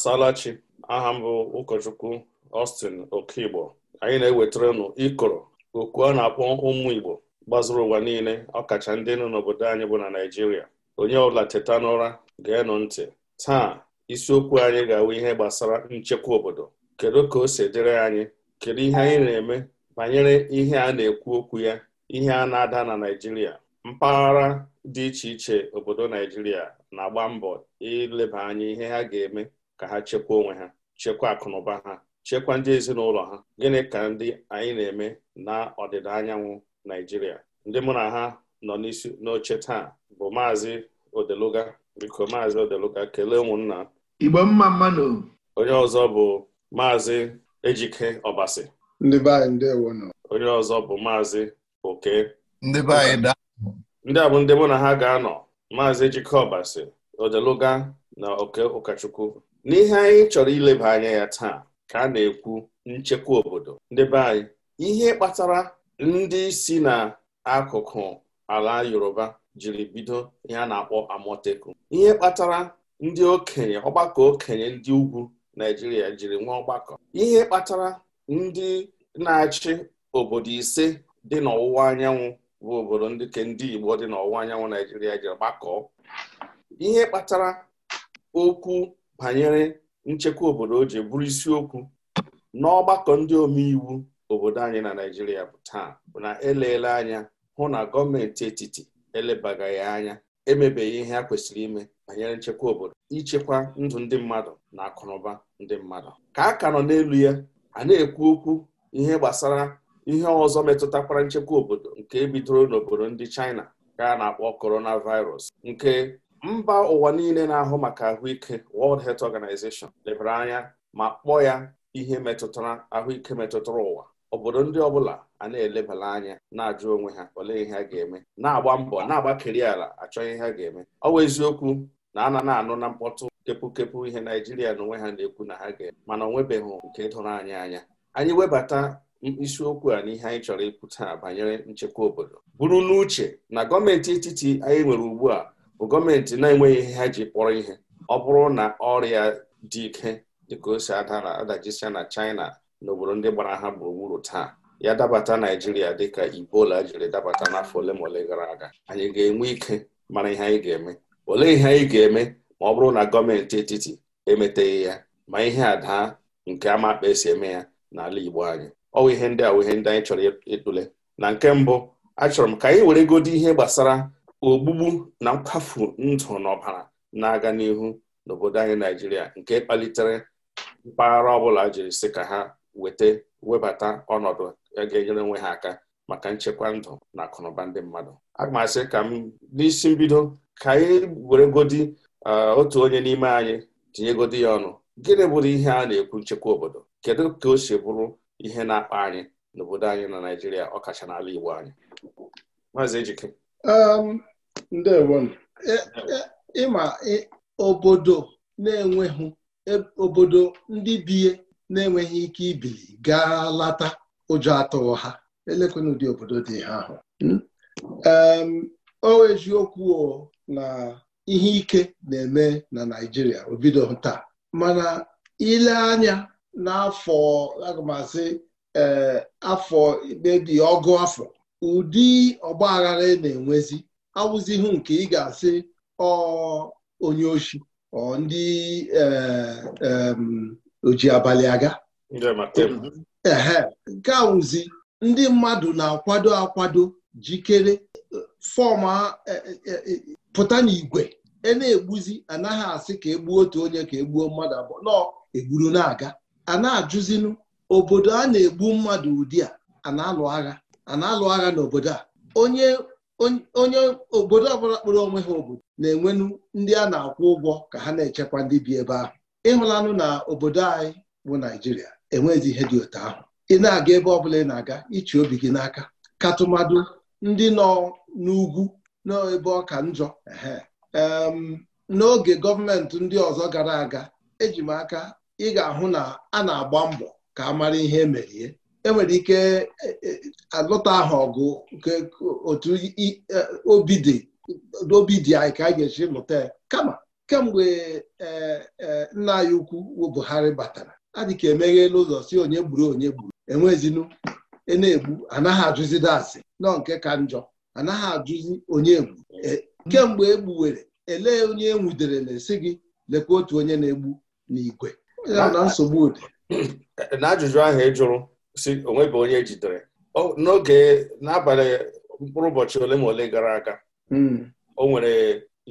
asalachi aha m bụ ụkọchukwu ostin Okigbo anyị na-ewetara nụ ịkọrọ okwu a na-akpọ ụmụ Igbo gbazuru ụwa niile ọkacha ndị nọ n'obodo anyị bụ na Naịjirịa onye ọbụla teta n'ụra ga-enụ ntị taa isiokwu anyị ga-awụ ihe gbasara nchekwa obodo kedu ka o si dịrị anyị kedu ihe anyị na-eme banyere ihe a na-ekwu okwu ya ihe a na-ada na Naịjirịa mpaghara dị iche iche obodo Naịjirịa na-agba mbọ ileba anya ihe ha ga-eme ka ha chekwa onwe ha chekwa akụnụba ha chekwa ndị ezinụlọ ha gịnị ka ndị anyị na-eme na ọdịda anyanwụ Naijiria ndị mụ na ha nọ n'isi n'oche taa bụ maazị Odeluga biko maazị Odeluga kelee ụmụnna Igbo mma mmanụ. onye ọzọ bụ maazị Ejike Ọbasi ndị be anyị nọ. onye ọzọ bụ maazị Oke ndị be da. ndị a bụ ndị mụ na ha ga-anọ maazị Ejike Ọbasi Odeluga na Oke Ụkachukwu n'ihe anyị chọrọ ileba anya ya taa ka a na-ekwu nchekwa obodo ndị be anyị ihe kpatara ndị si n'akụkụ ala Yoruba jiri bido ihe a na-akpọ Amotekwu ihe kpatara ndị okenye ọgbakọ okenye ndị ugwu Naijiria jiri nwee ọgbakọ ihe kpatara ndị na-achị obodo ise dị n'ọwụwa anyanwụ bụ obodo ndị ke ndị Igbo dị n'ọwụwa anyanwụ Naijiria jiri gbakọọ ihe kpatara okwu banyere nchekwa obodo o ji bụrụ isiokwu n'ọgbakọ ndị omeiwu obodo anyị na naijiria bụ taa bụ na eleele anya hụ na gọọmenti etiti elebagaghị anya emebeghị ihe a kwesịrị ime banyere nchekwa obodo ichekwa ndụ ndị mmadụ na akụnụba ndị mmadụ ka a ka nọ n'elu ya a na-ekwu okwu ihe gbasara ihe ọzọ metụtakwara nchekwa obodo nke bidoro n'obodo ndị China ka a na-akpọ coronavirus nke mba ụwa niile na-ahụ maka ahụike World Health Organization lebara anya ma kpọọ ya ihe metụtara ahụike metụtara ụwa obodo ndị ọbụla a na-elebara anya na-ajụ onwe ha olee ihe ha ga-eme na-agba mbọ na-agbakeri ala achọ ihe ha ga-eme ọ bụ eziokwu na a na na-anụ na mkpọtụ kepụkepụ ihe Naijiria na onwe ha na-ekwu na ha ga-eme mana ọ nwebeghị nke doro anyị anya anyị webata isiokwu a n'ihe anyị chọrọ ikwu taa banyere nchekwa obodo bụrụ n'uche na gọọmenti etiti anyị nwere ugbu a gọọmenti na-enweghị ihe ha ji kpọrọ ihe ọ bụrụ na ọrịa dị ike dịka o si ada na adajisia na China na obodo ndị gbara ha gburugburu taa ya dabata Naijiria dịka ibola jiri dabata n'afọ ole ma ole gara aga anyị ga-enwe ike mara ihe anyị ga-eme olee ihe anyị ga-eme ma ọ bụrụ na gọọmenti etiti emeteghị ya ma ihe a daa nke amakpa esi eme ya n'ala Igbo anyị ọ bụ ihe ndị a bụ ihe ndị anyị chọrọ ịtụle na nke mbụ achọrọ m ka anyị were godo ihe gbasara ogbugbu na nkwafu ndụ na ọbara na-aga n'ihu n'obodo anyị Naijiria nke kpalitere mpaghara ọbụla jiri sị ka ha weta webata ọnọdụ ga-enyere onwe ha aka maka nchekwa ndụ na akụnụba ndị mmadụ aga m asị ka m n'isi mbido ka anyị godi uh, otu onye n'ime anyị tinyegodi ya ọnụ gịnị bụrụ ihe a na-ekwu nchekwa obodo kedu ka o si bụrụ ihe na-akpa anyị n'obodo anyị na Naijiria ọkacha n'ala Igbo anyị maazị Ejike um, E, e, ịma obodo na-enweghị e, obodo ndị biye na-enweghị ike ibili gaa lata ụjọ atụghị ha elekwena ụdị obodo dị ha ahụ hmm? o eziokwu na ihe ike na-eme na Naijiria obido taa mana ile anya n'afọ agụmasị eh, afọ mebi ọgụ afọ ụdị ọgba aghara na-enwezi awụzighị nke ị ga-asị ọ onye oshi ọ ndị e, e, oji abalị aga ehe nke awụzi ndị mmadụ na-akwado akwado jikere fọm e, pụta n'igwe e na-egbuzi anaghị asị ka egbuo otu onye ka egbuo mmadụ abụọ nọ egburu na-aga a na-ajụzinụ obodo a na-egbu mmadụ ụdị a a na-alụ agha a na-alụ agha n'obodo a onye onye obodo ọbụla kpụrụ onwe ha obodo na-enwenu ndị a na-akwụ ụgwọ ka ha na-echekwa ndị bi ebe ahụ ịhụlanụ na obodo anyị bụ Naijiria enweghịzi ihe dị otu ahụ ị na-aga ebe ọbụla ị na-aga ichi obi gị n'aka tụmadụ ndị nọ n'ugwu n'ebe ọka njọ n'oge gọọmenti ndị ọzọ gara aga eji m aka ị ga-ahụ na a na-agba mbọ ka a mara ihe emerie enwere ike e, e, alụta ahụ ọgụ otu e, obi dị anyị ka a ga-eji lụta ya kama kemgbe nna anyị ukwu Buhari batara adị ka emeghe n'ụzọ si onye gburu onye gburu enwezinu na-egbu anaghị ajụzide asị nọ nke ka njọ anaghị ajụzi onye egbu kemgbe egbuwere ele onye enwudere na-esi gị lekwa otu onye na-egbu n'igwe na nsogbu dị. n'ajụjụ ahụ ị jụrụ si onweghị onye jidere n'oge n'abalị mkpụrụ ụbọchị ole ma ole gara aga hmm. o nwere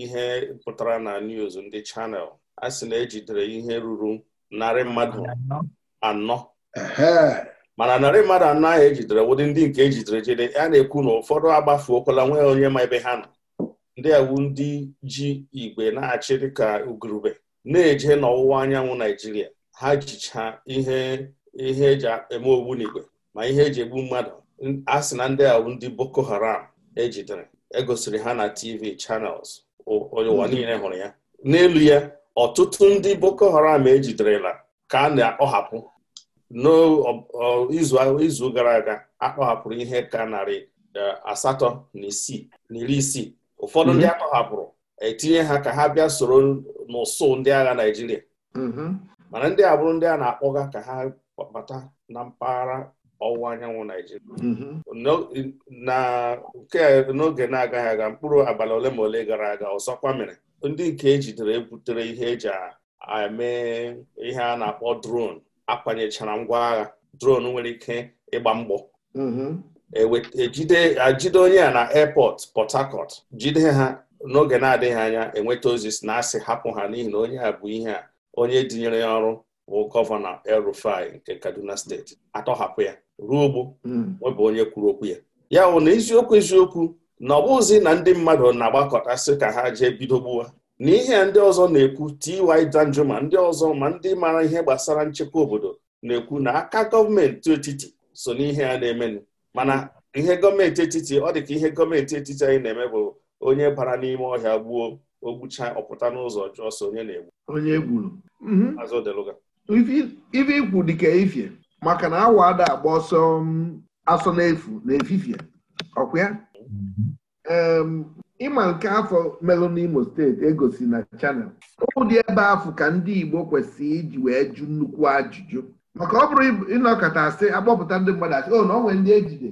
ihe pụtara na news ndị chanel a sị na ejidere ihe ruru narị mmadụ anọ mana narị mmadụ anọ ahụ ejidere ụdị ndị nke ejidere jide a na-ekwu na ụfọdụ agbafuokwala nwee onye ma ebe ha nọ ndị awu ndị ji igwe na-achị dịka ugurube na-eje n'ọwụwa anyanwụ naijiria ha jicha ihe ihe eji eme ogbu n'igwe ma ihe eji egbu mmadụ a sị na ndị a ndị Boko Haram ejidere egosiri ha na TV channels ụwa niile hụrụ ya n'elu ya ọtụtụ ndị Boko Haram ejiderela ka a na-akpọhapụ n'izu gara aga akpọhapụrụ ihe ka narị e, asatọ na isii na iri isii ụfọdụ ndị mhm. akpọhapụrụ etinye ha ka ha bịa soro n'ụsụ ndị agha Naịjirịa mhm. mana ndị a ndị a na-akpọga ka ha kwabata na mpaghara ọwụwa anyanwụ Naijiria mm-hmm. nke n'oge na-agaghị aga mkpụrụ abalị ole ma ole gara aga ọzọkwa mere ndị nke ejidere ebutere ihe eji emee ihe a na-akpọ dron akwanyechara ngwa agha dron nwere ike ịgba mgbọ mm-hmm. ejide e onye a na airport Port Harcourt jide ha n'oge na-adịghị anya enweta ozi si na asị hapụ ha n'ihi na onye a bụ ihe a onye dinyere ya ọrụ bụ gọvanọ el nke Kaduna steeti atọhapụ ya ruo ogbo nwebụ hmm. onye kwuru okwu ya ya bụ na eziokwu eziokwu na ọ bụghịzi na ndị mmadụ na-agbakọtasị ka ha jee bido gbuwa n'ihe ndị ọzọ na-ekwu Ty Danjuma ma ndị ọzọ ma ndị mara ihe gbasara nchekwa obodo na-ekwu na aka gọọmenti etiti so n'ihe ya na-emenụ mana ihe gọọmenti etiti ọ dị ka ihe gọọmenti etiti anyị na-eme bụ onye bara n'ime ọhịa gbuo ogbucha ọpụta n'ụzọ jụọ so onye na-egbu onye gburu mhm. ife ikwu dịka ifie maka na awa ada agba ọsọ um, asọ n'efu na efifie ọkwa ya mm-hmm. um, ịma nke afọ melụ n'Imo steeti egosi na chanel ụdị ebe afọ ka ndị Igbo kwesịrị iji wee jụ nnukwu ajụjụ maka ọ bụrụ ịnọkọta asị akpọpụta ndị mmadụ asị o oh, na onwe ndị ejide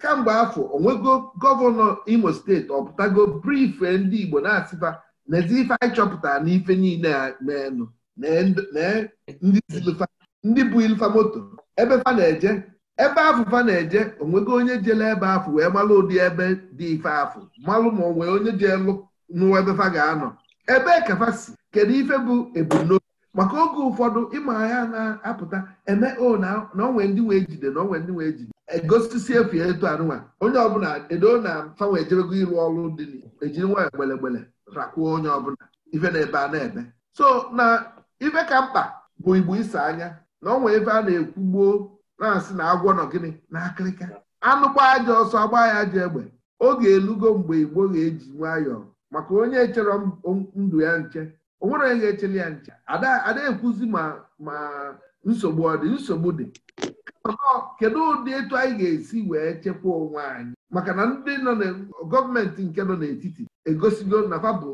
kamgbe afọ onwego gọvanọ Imo steeti ọpụtago brife ndị Igbo na-asịba n'ezi ife anyị chọpụtara n'ife niile a meenụ ndị bụ ilfa moto ebe fa na-eje ebe afụfa na-eje onwego onye jele ebe afụ wee malụ ụdị ebe dị ife afụ malụ ma onwe onye ji nụwa ebe fa ga-anọ ebee ka fa si kedu ife bụ ebumnobi maka oge ụfọdụ ịma ya na-apụta eme o na onwe ndị wee jide na onwe ndị wee jide egosisi efu etu anụnwa onye ọbụla edo na fanwe ejebego ịrụ ọrụ dị ejiri e nwa egbelegbele rakwuo onye ọbụla ife na-ebe a na-ebe so na ibe ka mkpa bụ igbo ise anya na nwee ebe a na-ekwu gboo na-asị na agwọ nọ gịnị na akịrịka anụkwa aja ọsọ agba ya ji egbe oge elugo mgbe igbo ga-eji nwayọọ maka onye chere ndụ ya nche onwere onye ga-echele ya nche ada ekwuzi ma ma nsogbu ọ dị nsogbu dị kedu ụdị etu anyị ga-esi wee chekwa onwe anyị maka na ndị nọ na gọọmenti nke nọ n'etiti egosigo na fabụ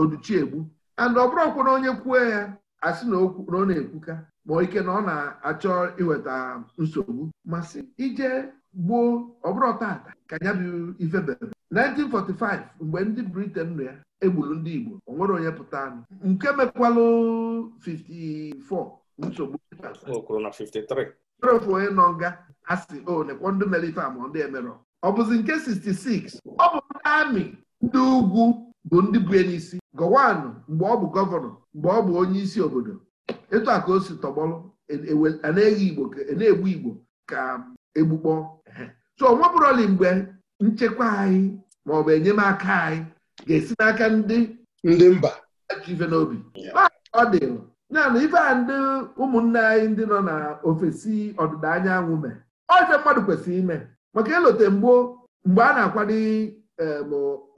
oduchiegbu and ọ bụrụkwa na onye kwuo ya asị na ọ na-ekwuka ma ike na ọ na-achọ iweta nsogbu masị ije gbuo ọbụrụ tata ka ya bụ ife bere 1945 mgbe ndị Britain nọ ya egburu ndị Igbo ọ nwere onye pụta anụ nke mekwalụ 54 nsogbu ofu onye nọ nga asị o nekwa ndị mere ife ama ndị emerọ ọ bụzi nke 66 ọ bụ ndị amị ndị ugwu bụ ndị bue n'isi isi gọwanụ mgbe ọ bụ gọvanọ mgbe ọ bụ onye isi obodo ịtụ a osi o si tọgbọrọ e, e na-eghe igbo na-egbu igbo ka um, egbukpọ so ọ bụrụli mgbe nchekwa anyị ma ọ bụ enyemaka anyị ga-esi n'aka ndị ndị mba ife n'obi ọ dị ya na ife a ndị ụmụnne anyị ndị nọ na ofesi ọdịda anyanwụ mee ọjọ mmadụ kwesịrị ime maka elote mgbo mgbe a na-akwado um,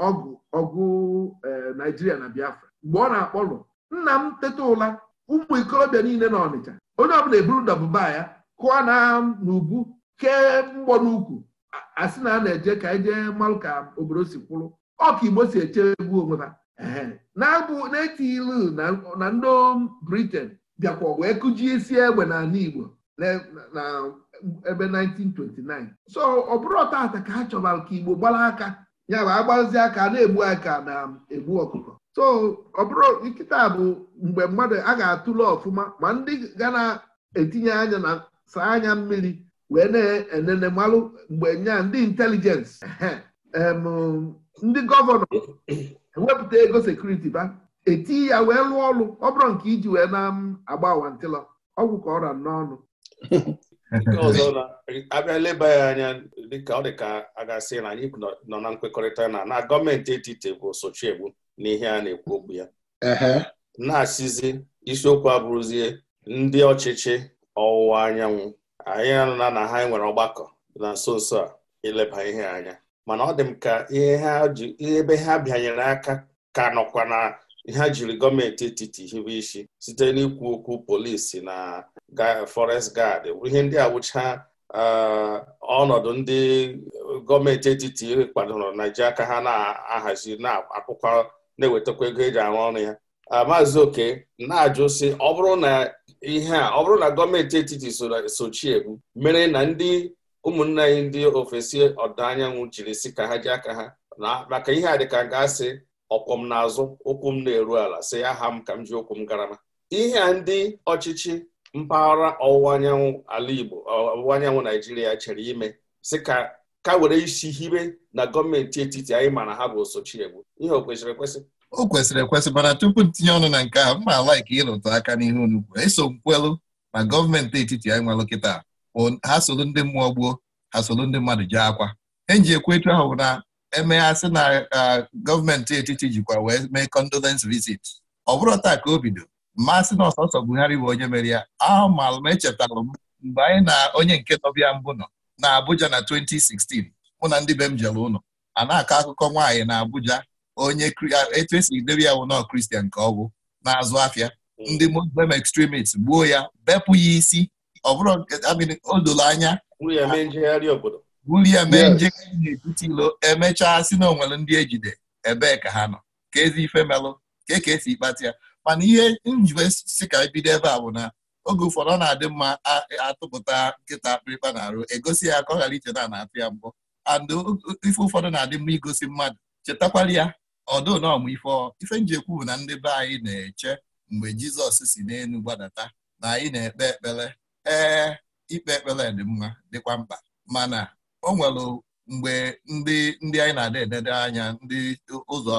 ọgụ ọgụ eh, naijiria na biafra mgbe ọ na akpọrụ nna m teta ụla ụmụ ikorobịa niile na ọnịcha onye ọbụla eburu ndabụba ya kụọ na n'ubu kee mgbọ n'ukwu asị na a na-eje ka anyị e jee ka obodo si kwụrụ ọka igbo si echegbu onwe ha na-abụ na etiilu na ndị briten bịakwa wee kụjie isi egbe n'ala igbo na ebe 1929 so ọ bụrụ ọta ka ha chọbara ka igbo gbara aka ya bụ agbazi aka na-egbu aka na-egbu ọkụkọ so ọ bụrụ nkịta bụ mgbe mmadụ a ga-atụle ọfụma ma ndị gaa na-etinye anya na saa anya mmiri wee na-enene malụ mgbe nya ndị intelijensị ndị gọvanọ e wepụta ego sekuriti ba etinye ya wee lụọ ọrụ ọ nke iji wee na-agba wantịlọ ọgwụ ka ọ ra n'ọnụ nke ọzọ abịa leba ya anya dịka ọ dị ka a ga-asị na anyị nọ na nkwekọrịta na na gọọmenti etiti bụ sochiegbu na n'ihe a na-ekwu okwu ya na-asịzi isiokwu abụrụzie ndị ọchịchị ọwụwa anyanwụ anyị anụna na ha nwere ọgbakọ na nso nso a ileba ihe anya mana ọ dị m ka ihe ebe ha bịanyere aka ka nọkwa na ha jiri gọọmenti etiti hibe isi site n'ikwu okwu polisi na forest guard ihe ndị agbụcha ọnọdụ ndị gọọmenti etiti kwadoro ji ka ha na-ahazi na-akwụkwa na-ewetakwa ego eji arụ ọrụ ya maazị oke na-ajụ si ọ bụrụ na ihe a ọ bụrụ na gọọmenti etiti sochie mere na ndị ụmụnna anyị ndị ofesi ọdịda anyanwụ jiri si ka ha ji aka ha na maka ihe a dịka ga-asị ọkwọ m n'azụ ụkwụ m na-eru ala si aha m ka m ji ụkwụ m garama ihe a ndị ọchịchị mpaghara ọwụwa anyanwụ ala Igbo ọwụwa anyanwụ Naijiria chere ime sị ka ka were isi hibe na gọọmenti etiti anyị ma na ha bụ Sochiegbu ihe o kwesịrị ekwesị o kwesịrị ekwesị mana tupu ntinye ọnụ na nke a mma ala ka ịrụtụ aka n'ihe onukwu eso nkwelu na gọọmenti etiti anyị nwelụ kịta ha solu ndị mmụọ gboo ha solu ndị mmadụ jee akwa eji ekwu etu ahụ na emeghasị na ah, gọọmenti etiti jikwa wee mee condolence visit ọ bụrụ taa ka o bido mmasị na ọsọsọ Buhari bụ onye mere ya ahụ m na echetara m mgbe anyị na onye nke nọbịa mbụ nọ na Abuja na 2016 mụ na ndị be m jere ụlọ a na-akọ akụkọ nwaanyị na Abuja onye etu esi debe ya wụnọ Kristian nke ọgwụ na-azụ afịa hmm. ndị Muslim extremist gbuo ya bepụ ya isi ọbụrụ bụrụ o doro anya buru ya mee njegharị ilo emechaa si na onwere ndị ejide ebee ka ha nọ ka ezi ife melụ ka e ka esi ịkpata ya mana ihe njiwe si ka e bido ebe a bụ na oge ụfọdụ ọ na-adị mma atụpụta nkịta akpịrịkpa na-arụ egosi ya ka ọ ghara icheta na na-atụ ya mbụ and ife ụfọdụ na-adị mma igosi mmadụ chetakwara ya ọdụ na ọmụ ife ife njekwu bụ na ndị be anyị na-eche mgbe jizọs si n'elu gbadata na anyị na-ekpe ekpere ee ikpe ekpere dị mma dịkwa mkpa mana o nwere mgbe ndị ndị anyị na adị edede anya ndị ụzọ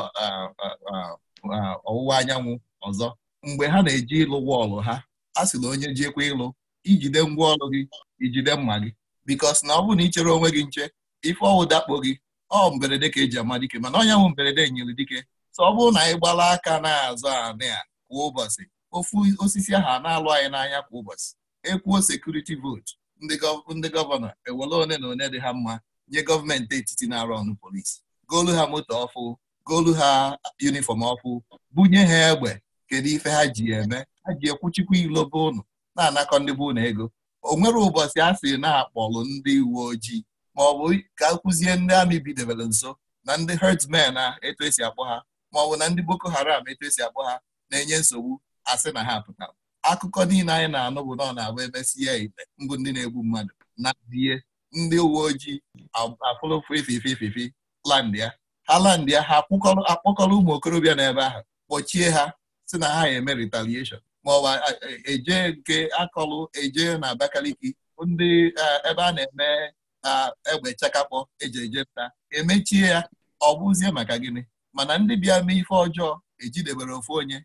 ọwụwa anyanwụ ọzọ mgbe ha na-eji ịlụ wọọlụ ha a sị na onye jekwa ịlụ ijide ngwa ọlụ gị ijide mma gị bikos na ọ bụrụ na ị chere onwe gị nche ife ọwụ dakpo gị ọ mberede ka eji ama dike mana onye nwụ mberede nyere dike sọ ọ bụrụ na anyị gbala aka na-azụ anị a kwa ụbọchị ofu osisi ahụ na-alụ anyị n'anya kwa ụbọchị ekwuo sekuriti vootu ndị gọvanọ ewere one na one dị ha mma nye gọọmenti etiti na-arụ ọnụ polisi goolu ha moto ọfụ goolu ha yunifọm ọfụ bunye ha egbe kedu ife ha ji eme ha ji ekwuchikwa ilobe ụnụ na-anakọ ndị bụ ụnụ ego o nwere ụbọchị a sị na-akpọlụ ndị uwe ojii ma ọ bụ ka akụzie ndị amị bidebere nso na ndị herdsmen a etu esi akpọ ha ma ọ bụ na ndị boko haram etu esi akpọ ha na-enye nsogbu asị na ha pụtara akụkọ niile anyị na-anụ bụ na ọ na-abụ emesia ite mbụ ndị na-egbu mmadụ na die ndị uwe ojii afụlụfụ ifife ififi ha landia ha akpọkọrọ ụmụ okorobịa n'ebe ahụ kpọchie ha si na ha eme retaliation ma ọ bụ eje e nke akọlụ eje na Abakaliki ndị ebe a na-eme egbe chakapọ eji eje nta emechie ya ọ bụzie maka gịnị mana ndị bịa mee ife ọjọọ ejidebere ofu onye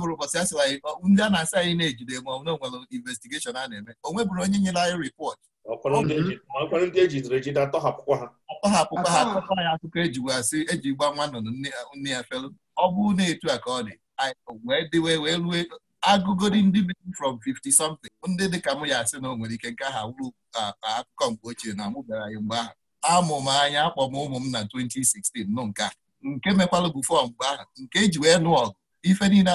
bụrụ ụbọchị asị anyị ndị a na-asị anyị na-ejide ma na onwere investigeshọn a na-eme bụrụ onye nyere anyị ripọt ndị ejidere e ejide atọhapụkwa ha atọhapụkwa ha ya akụkọ ejigasị eji gba nwa nnụnụ nne ya felu ọ bụ na etu a ka ọ dị wee dịwe wee rue agụgodi ndị from 50 something ndị dịka mụ ya asị na o nwere ike nke ha wuru akụkọ mgbe ochie na bịara ya mgbe ahụ amụ m anya akpọ m ụmụ m na 2016 nụ nke a nke mekwala bụ fọm mgbe ahụ nke eji wee nụ ọgụ ife niile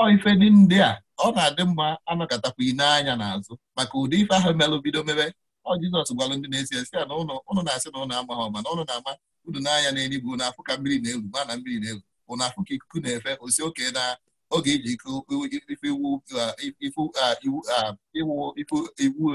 ọ ife ndị a ọ na-adị mma anọkọtakwa n'anya n'azụ maka ụdị ife ahụ melụ bido mebe ọ Jizọs gwalụ ndị na-esi esi ya na ụnụ na-asị na ụnụ amaghị mana ụnụ na-ama unu n'anya na-enye na ka mmiri na-elu ma na mmiri na-elu ụnafụ ka ikuku na-efe osi oke na oge iji ife iwu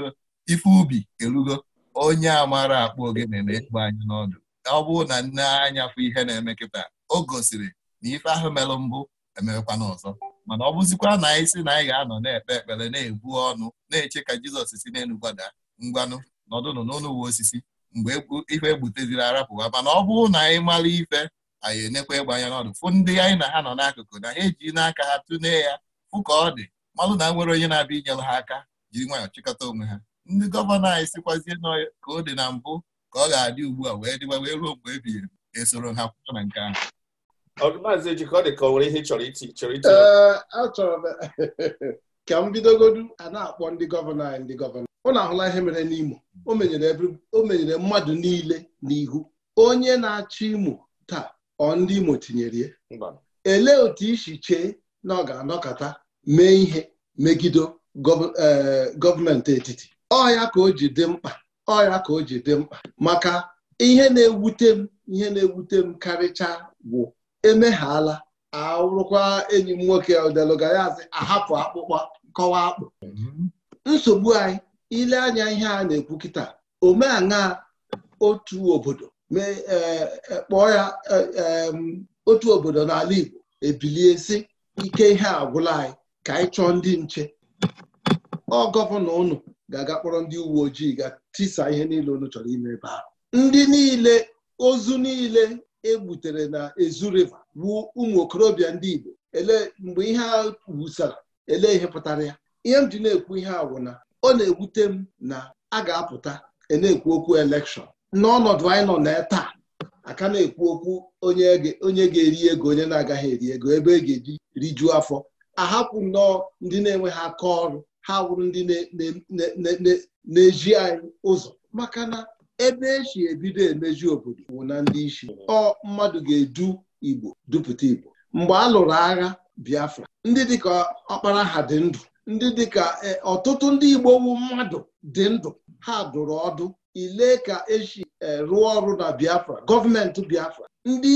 ife ubi erugo onye amara akpụ ogene na-ekpo anyị n'ọdụ ọ bụrụ na nne anya fụ ihe na-eme kịta o gosiri na ife ahụ merụ mbụ emewekwa ọzọ," mana ọ bụzikwa na anyị si na anyị ga-anọ na-ekpe ekpere na-ebu ọnụ na-eche ka Jizọs si n'elu gbada ngwanụ nọdụnụ n'ụlọ uwe osisi mgbe ife egbuteziri arapụwa mana ọ bụrụ na anyị mara ife anyị enekwa ịgba ya n'ọdụ fụ ndị anyị na ha nọ n'akụkụ na ha eji n'aka ha tụne ya fụ ka ọ dị malụ na nwere onye na-abịa inyere ha aka jiri nwayọọ chịkọta onwe ha ndị gọvanọ anyị sikwazie ka ọ dị na mbụ ka ọ ga-adị ugbu a wee dịwa wee ruo mgbe ebighị esoro ha kwụ na nke ahụ Maazị Ejike ọ dị ka o nwere ihe chọrọ iti chọrọ achọrọ ka m bidogodu a na-akpọ ndị gọvanọ anyị ndị gọvanọ ọ na-ahụla ihe mere n'Imo o menyere mmadụ niile n'ihu onye na-achọ Imo ọ ndị Imo tinyere ya elee otu isi chee na ọ ga-anọkọta mee ihe megide eh, gọọmenti etiti ọya ka o ji dị mkpa ọya ka o ji dị mkpa maka ihe na-ewute m ihe na-ewute m karịcha bụ emeghala arụkwa enyi m nwoke odelugayaz ahapụ akpụkpọ kọwa akpụ nsogbu anyị ile anya ihe a na-ekwu kịta omeana otu obodo mee kpọọ ya otu obodo n'ala Igbo ebilie sị ike ihe agwụla anyị ka anyị chọọ ndị nche ọ gọvanọ unu ga-aga kpọrọ ndị uwe ojii ga tisa ihe niile unu chọrọ ime ebe ahụ ndị niile ozu niile egbutere na Ezu riva bụ ụmụ okorobịa ndị Igbo ele mgbe ihe a wusara ele ihe pụtara ya ihe m ji na-ekwu ihe a na ọ na-ewute m na a ga-apụta e na-ekwu okwu elekshọn n'ọnọdụ anyị nọ na taa aka na-ekwu okwu onye ga-eri ego onye na-agaghị eri ego ebe e ga-eji rijuo afọ ahapụ nnọọ ndị na-enweghị aka ọrụ ha wụrụ ndị na-eji anyị ụzọ maka na ebe esi ebido emeju obodo bụ na ndị isi ọ mmadụ ga-edu Igbo dupụta Igbo mgbe a lụrụ agha Biafra ndị dịka ọkpara ha dị ndụ ndị dịka eh, ọtụtụ ndị Igbo wu mmadụ dị ndụ ha dụrụ ọdụ ile ka esi e, rụọ ọrụ na Biafra gọọmenti Biafra ndị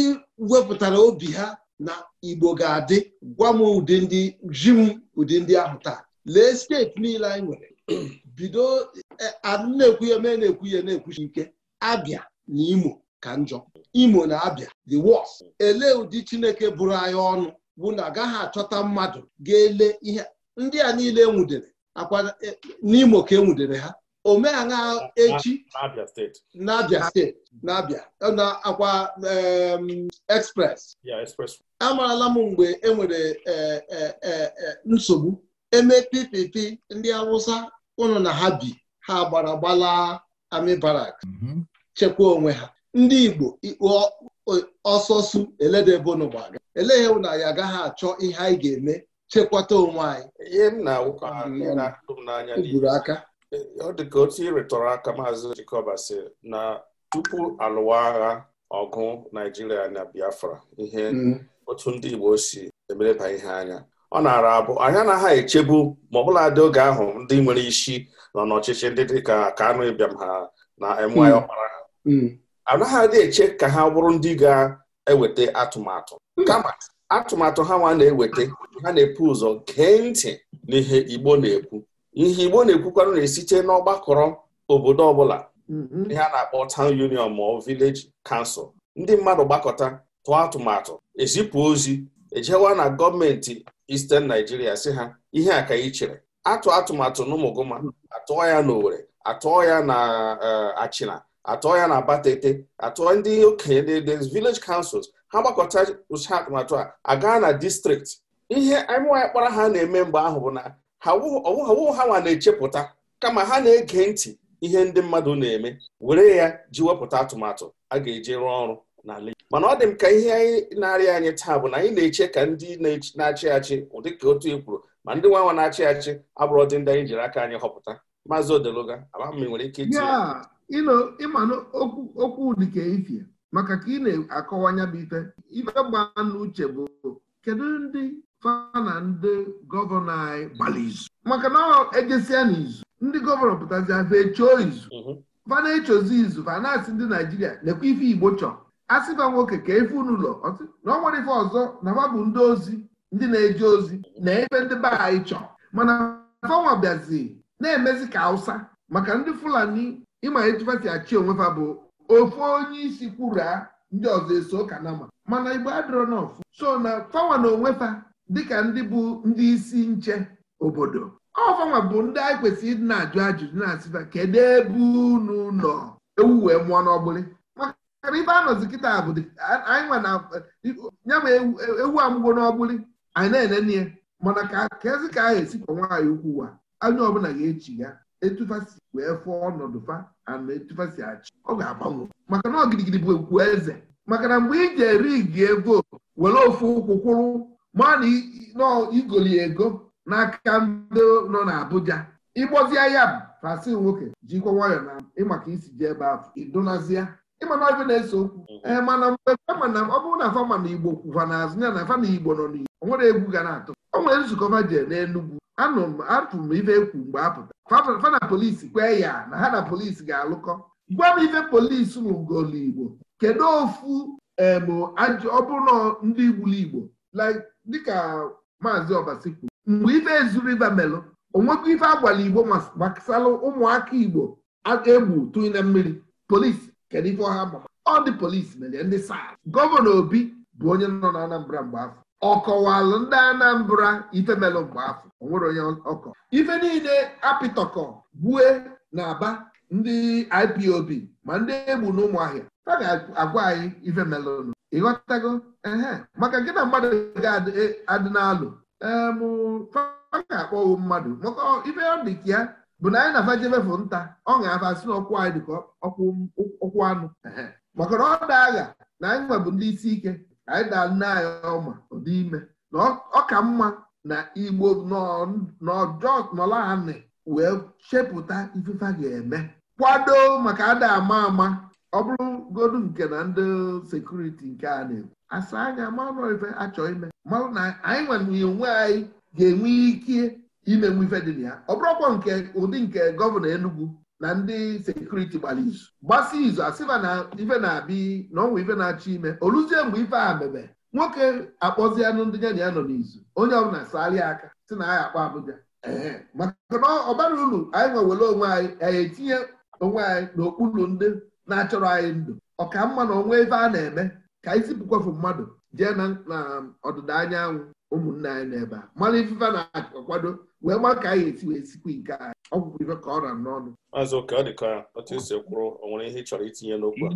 wepụtara obi ha na Igbo ga-adị gwa m ụdị ndị ji m ụdị ndị ahụ taa lee steeti niile anyị nwere bido e, na-ekwuye mee na-ekwuye na-ekwuchi ike Abia na Imo ka njọ Imo na Abia the worst elee ụdị Chineke bụrụ anyị ọnụ bụ na agaghị achọta mmadụ ga-ele ihe ndị a niile enwudere akwa e, n'Imo ka enwudere ha omeaṅa echi n'abịa steeti na akwa express amarala m mgbe enwere e, e, e, nsogbu eme ppp ndị awụsa ụnụ na ha bi ha gbara gbala ami barak mm-hmm. chekwa onwe ha ndị igbo ọsọsụ eledebonugbaga elee ewu na ya agaghị achọ ihe anyị ga-eme chekwata onwe anyị gburu aka Eh, ọ dị ka otu ịrịtọrọ aka maazị Jikọba si na tupu alụwa agha ọgụ Naijiria na Biafra ihe mm-hmm. otu ndị Igbo si emereba ihe anya ọ na-ara abụ na anaghị echebu ma ọbụladị dị oge ahụ ndị nwere isi nọ n'ọchịchị ndị dị ka Kanu Ibiam ha na MY mm-hmm. Ọkpara ha mm-hmm. anaghị adị eche ka ha bụrụ ndị ga-eweta atụmatụ kama atụmatụ ha nwa na-eweta ha na-epu ụzọ gee ntị n'ihe Igbo na-ekwu ihe Igbo na-ekwukwanụ na-esite n'ọgbakọrọ obodo ọbụla mm-hmm. ihe a na-akpọ town union ma ọ village ndị mmadụ gbakọta tụọ atụmatụ ezipụ ozi ejewa na gọọmenti Isten naijiria si ha ihe a ka anyị chere atụ atụmatụ n'Umuguma atụọ ya n'Owere atụọ ya na eh, Achịna atụọ ya na Abatete atụọ ndị okenye ndị vileji kansụls ha gbakọta ụcha atụmatụ a agaa na distrikti ihe anyị kpara ha na-eme mgbe ahụ bụ na ọwụghị ha nwa na-echepụta kama ha na-ege ntị ihe ndị mmadụ na-eme were ya ji wepụta atụmatụ a ga-eji rụọ ọrụ n'ala mana ọ dị m ka ihe anyị na-arịa anyị taa bụ na anyị na-eche ka ndị na-achị achị ụdị ka otu e kwuru ma ndị nwa nwa na-achị achị abụrụ dị ndị anyị jiri aka anyị họpụta maazị odeluga amam nwere ike ịmanụ okwu dịka ifie maka ka ị na-akọwa bụ ife ife gbaa n'uche bụ kedu ndị fa na ndị gọvanọ anyị gbara izu maka na ejesia n'izu ndị gọvanọ pụtazi afa echoo izu mhm. fana echozi izu fa asị ndị naijiria na-ekwe ife igbo chọ asịba nwoke ka efe n'ụlọ na ọ nwere ife ọzọ na fa bụ ndị ozi ndị na-eje ozi na ebe ndị be anyị chọ. mana fanwa bịazi na-emezi ka awụsa. maka ndị fulani ịma etufasi achị onwe fa bụ ofu onye isi kwura ndị ọzọ eso kanama mana igbo adịrọ n'ọfụ so na fanwa na onwe fa dịka ndị bụ ndị isi nche obodo ọfanwa bụ ndị anyị kwesịrị ịdị na-ajụ ajụjụ na-asịba kedu ebe unu nọ ewu wee mụọ n'ọgbụlị maka ibe anọzi kịta bụ anyị nwa na ya ma ewu amụgo n'ọgbụlị anyị na-enene ya mana ka kezi ka a esikwa nwaanyị ukwu wa anya ọbụla ga-echi ya etufasi wee fụọ ọnọdụ fa ana etufasi achị ọ ga-agbanwe maka na ọgirigiri bụ ekwu eze maka na mgbe iji eri gie vootu were ofu ụkwụ kwụrụ ma na igoli ego n'aka ndị nọ n'Abuja ịgbozie ya bụ fasin nwoke jikwa nwayọọ na ịmaka isi ji ebe afọ ịdụnazịa ịmana ọbịa na-ese okwu ee eh, mana mgbe ọ bụrụ na fama na igbo kwụkwa n'azụ ya na fama igbo nọ n'igbo o nwere egwu ga na-atụ o nwere nzukọ fajee n'Enugwu anụ m atụ m ife ekwu mgbe apụta na polisi kwee ya na ha na polisi ga-alụkọ gwa m ife polisi n'ugoli igbo kedu ofu ọ bụrụ na ndị igbuli igbo like dịka maazị Obasi kwuru mgbe ife ezuru ibe melụ onwekwa ife agwala igbo gbasara ụmụaka igbo aka egbu tụnye na mmiri polisi kedu ife ọha ma ọ dị polisi mere ndị saa gọvanọ obi bụ onye nọ na anambra mgbe afọ ọ kọwalụ ndị anambra ife melụ mgbe afọ onwere onye ọkọ ife niile apịtọkọ gbue na aba ndị ipob ma ndị egbu na ụmụahịa ha ga-agwa anyị ife melụnụ ịghọtago ee maka gị na mmadụ ga-adị e, n'alụ a ga-akpọwo mmadụ maka ibe ọ dị ka ya bụ na anyị na vajebefụ nta ọ ga-afasi n'ọkwụ anyị dịka ọkwụ anụ maka na ọ daa agha na anyị nwebụ ndị isi ike anyị daa nne anyị ọma ụdị ime na ọ ka mma na igbo nọlaanị wee chepụta ifefe ga-eme kwado maka ada ama ama ọ bụrụgodu nke na ndị sekuriti nke a na-ekwu asa anya marụ ife achọ ime marụ na anyị nwere onwe anyị ga-enwe ike imenwu ife dị na ya ọ bụrụkwa nke ụdị nke gọvanọ Enugu na ndị sekuriti gbara izu gbasa izu asịba na ife na-abịa na ọnwa ife na-achọ ime oluzie mgbe ife a mebe nwoke akpọzianụ ndị ya na ya nọ n'izu onye ọbụla sarịa aka si na anyị akpa Abuja maka na ọ bara uru anyị nwewere onwe anyị anyị etinye onwe anyị n'okpuru ndị na-achọrọ anyị ndụ ọka mma na ọnwa ebe a na-eme ka anyị zipụkwafu mmadụ jee na um, ọdịda anyanwụ ụmụnne anyị n'ebe a mmanụ ifufe na-akwado wee ma ka anyị esi wee sikwa nke anyị ọgwụgwụ ife ka ọ ra n'ọnụ ọ dị ka otu esi ihe itinye n'okwu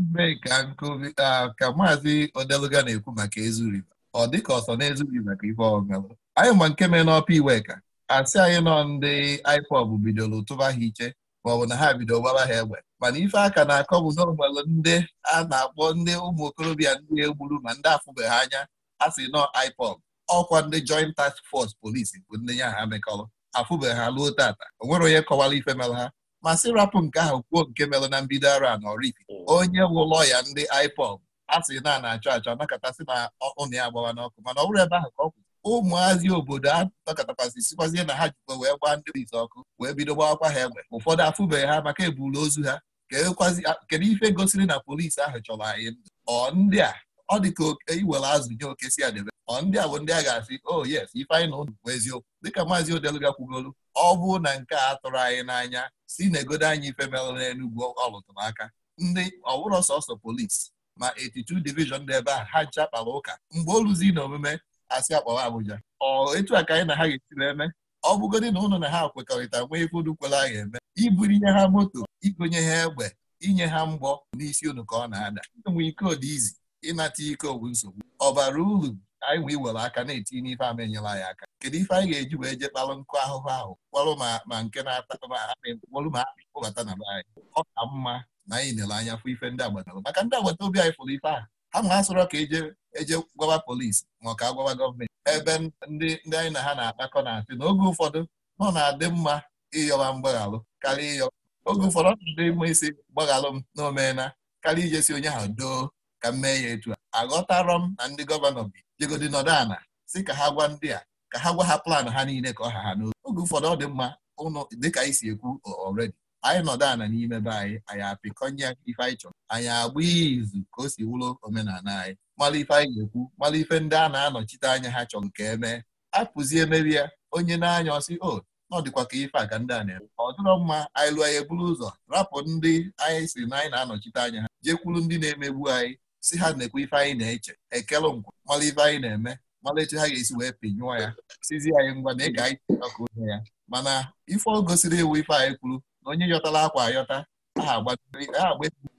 a ka maazị odeluga na-ekwu maka ezuriba ọ dị ka ọsọ na-ezughị maka ife ọmelụ anyị ma nke mee n'ọpa iweka asị anyị nọ ndị ipob bidoro tụba ha iche maọbụ na ha bidoro gbara ha egbe mana ife aka na-akọ bụ na ndị a na-akpọ ndị ụmụ okorobịa ndị egburu ma ndị afụbeghị anya a sị nọ IPOB ọkwa ndị joint task force polisi bụ ndị ya ha mekọrọ afụbeghị ha ruo tata o nwere onye kọwara ife mere ha ma sị rapụ nke ahụ kwuo nke mere na mbido ara na Oraifite oh. onye wụlọ ya ndị IPOB a sị na na-achọ achọ nakọtasị na ụnụ ya agbawa n'ọkụ mana ọ bụrụ ebe ahụ ka ọ ụmụazị obodo a nọkọtakwasị sikwazie na ha jikwa wee gbaa ndị ọkụ wee bido gbawakwa ha egbe ụfọdụ afụbeghị ha maka eburu ozu ha Ah, kedu ife gosiri na polisi ahụ chọrọ anyị ndụ ọ ndị a ọ dị ka e iwere azụ nye oke si adebe ọ ndị a bụ ndị a ga-asị o oh, yes ife anyị na ụnụ bụ eziokwu dịka maazị odelubia kwugolu ọ bụ na nke a tụrụ anyị n'anya si na egodo anyị ife merụ n'Enugwu ọlụtụrụ aka ndị ọwụrọ sọsọ polisi ma 82 divishọn dị ebe a ha ncha kpara ụka mgbe oluzi na omume asị akpọrọ Abuja ọ etu a ka anyị na ha ga-esi eme ọ bụgodị na ụnụ na ha kwekọrịta nwee ife udu a ga eme ihe ha moto igonye ha egbe inye ha mgbọ n'isi unu ka ọ na-ada enwe iko dị izi ịnata ike owu nsogbu ọ bara uru anyị wee were aka na-etinye n'ife ama enyela anyị aka kedu ife anyị ga-eji wee je kpalụ nkụ ahụhụ ahụ kpọrọ ma nke na-ata kpọrọ ma akpị kpụbata na anyị ọ ka mma na anyị lere anya fụ ife ndị agbata obi maka ndị agbata obi anyị fụrụ ife ahụ ha ma asọrọ ka eje eje gwawa polisi ma ọ ka agwawa gọọmenti ebe ndị ndị anyị na ha na-akpakọ na-asị na oge ụfọdụ nọ na-adị mma ịyọwa mgbaghalụ karịa ịyọ oge ụfọdụ ọdụ dị isi gbaghalụ m n'omena, omeela ije ijesi onye ahụ doo ka m mee ya etu a aghọtarọ m na ndị gọvanọ bi jegodi nọdụ ana si ka ha gwa ndị a ka ha gwa ha plan ha niile ka ọ ha ha n'oge oge ụfọdụ ọ dị mma ụnụ dịka anyị si ekwu ọredi anyị nọdụ ana n'ime be anyị anyị apịkọnye ife anyị chọrọ anyị agba izu ka o si wụrụ omenala anyị mara ife anyị ga-ekwu mara ife ndị a na-anọchite anya ha chọrọ nke emee apụzie merie onye na-anya ọsị o oh, ọ dịkwa ka ife aga ndị a na-eme ọ dịrọ mma anyị lụọ eburu ụzọ rapụ ndị anyị si na anyị na-anọchite anya ha jekwuru ndị na-emegbu anyị si ha na-ekwe ife anyị na-eche ekele nkwa mara ife anyị na-eme mara etu ha ga-esi wee pinyụọ ya sizi anyị ngwa na ịga anyị ọka onye ya mana ife ọ gosiri ewu ife anyị kwuru na onye yọtara akwa ayọta aha agba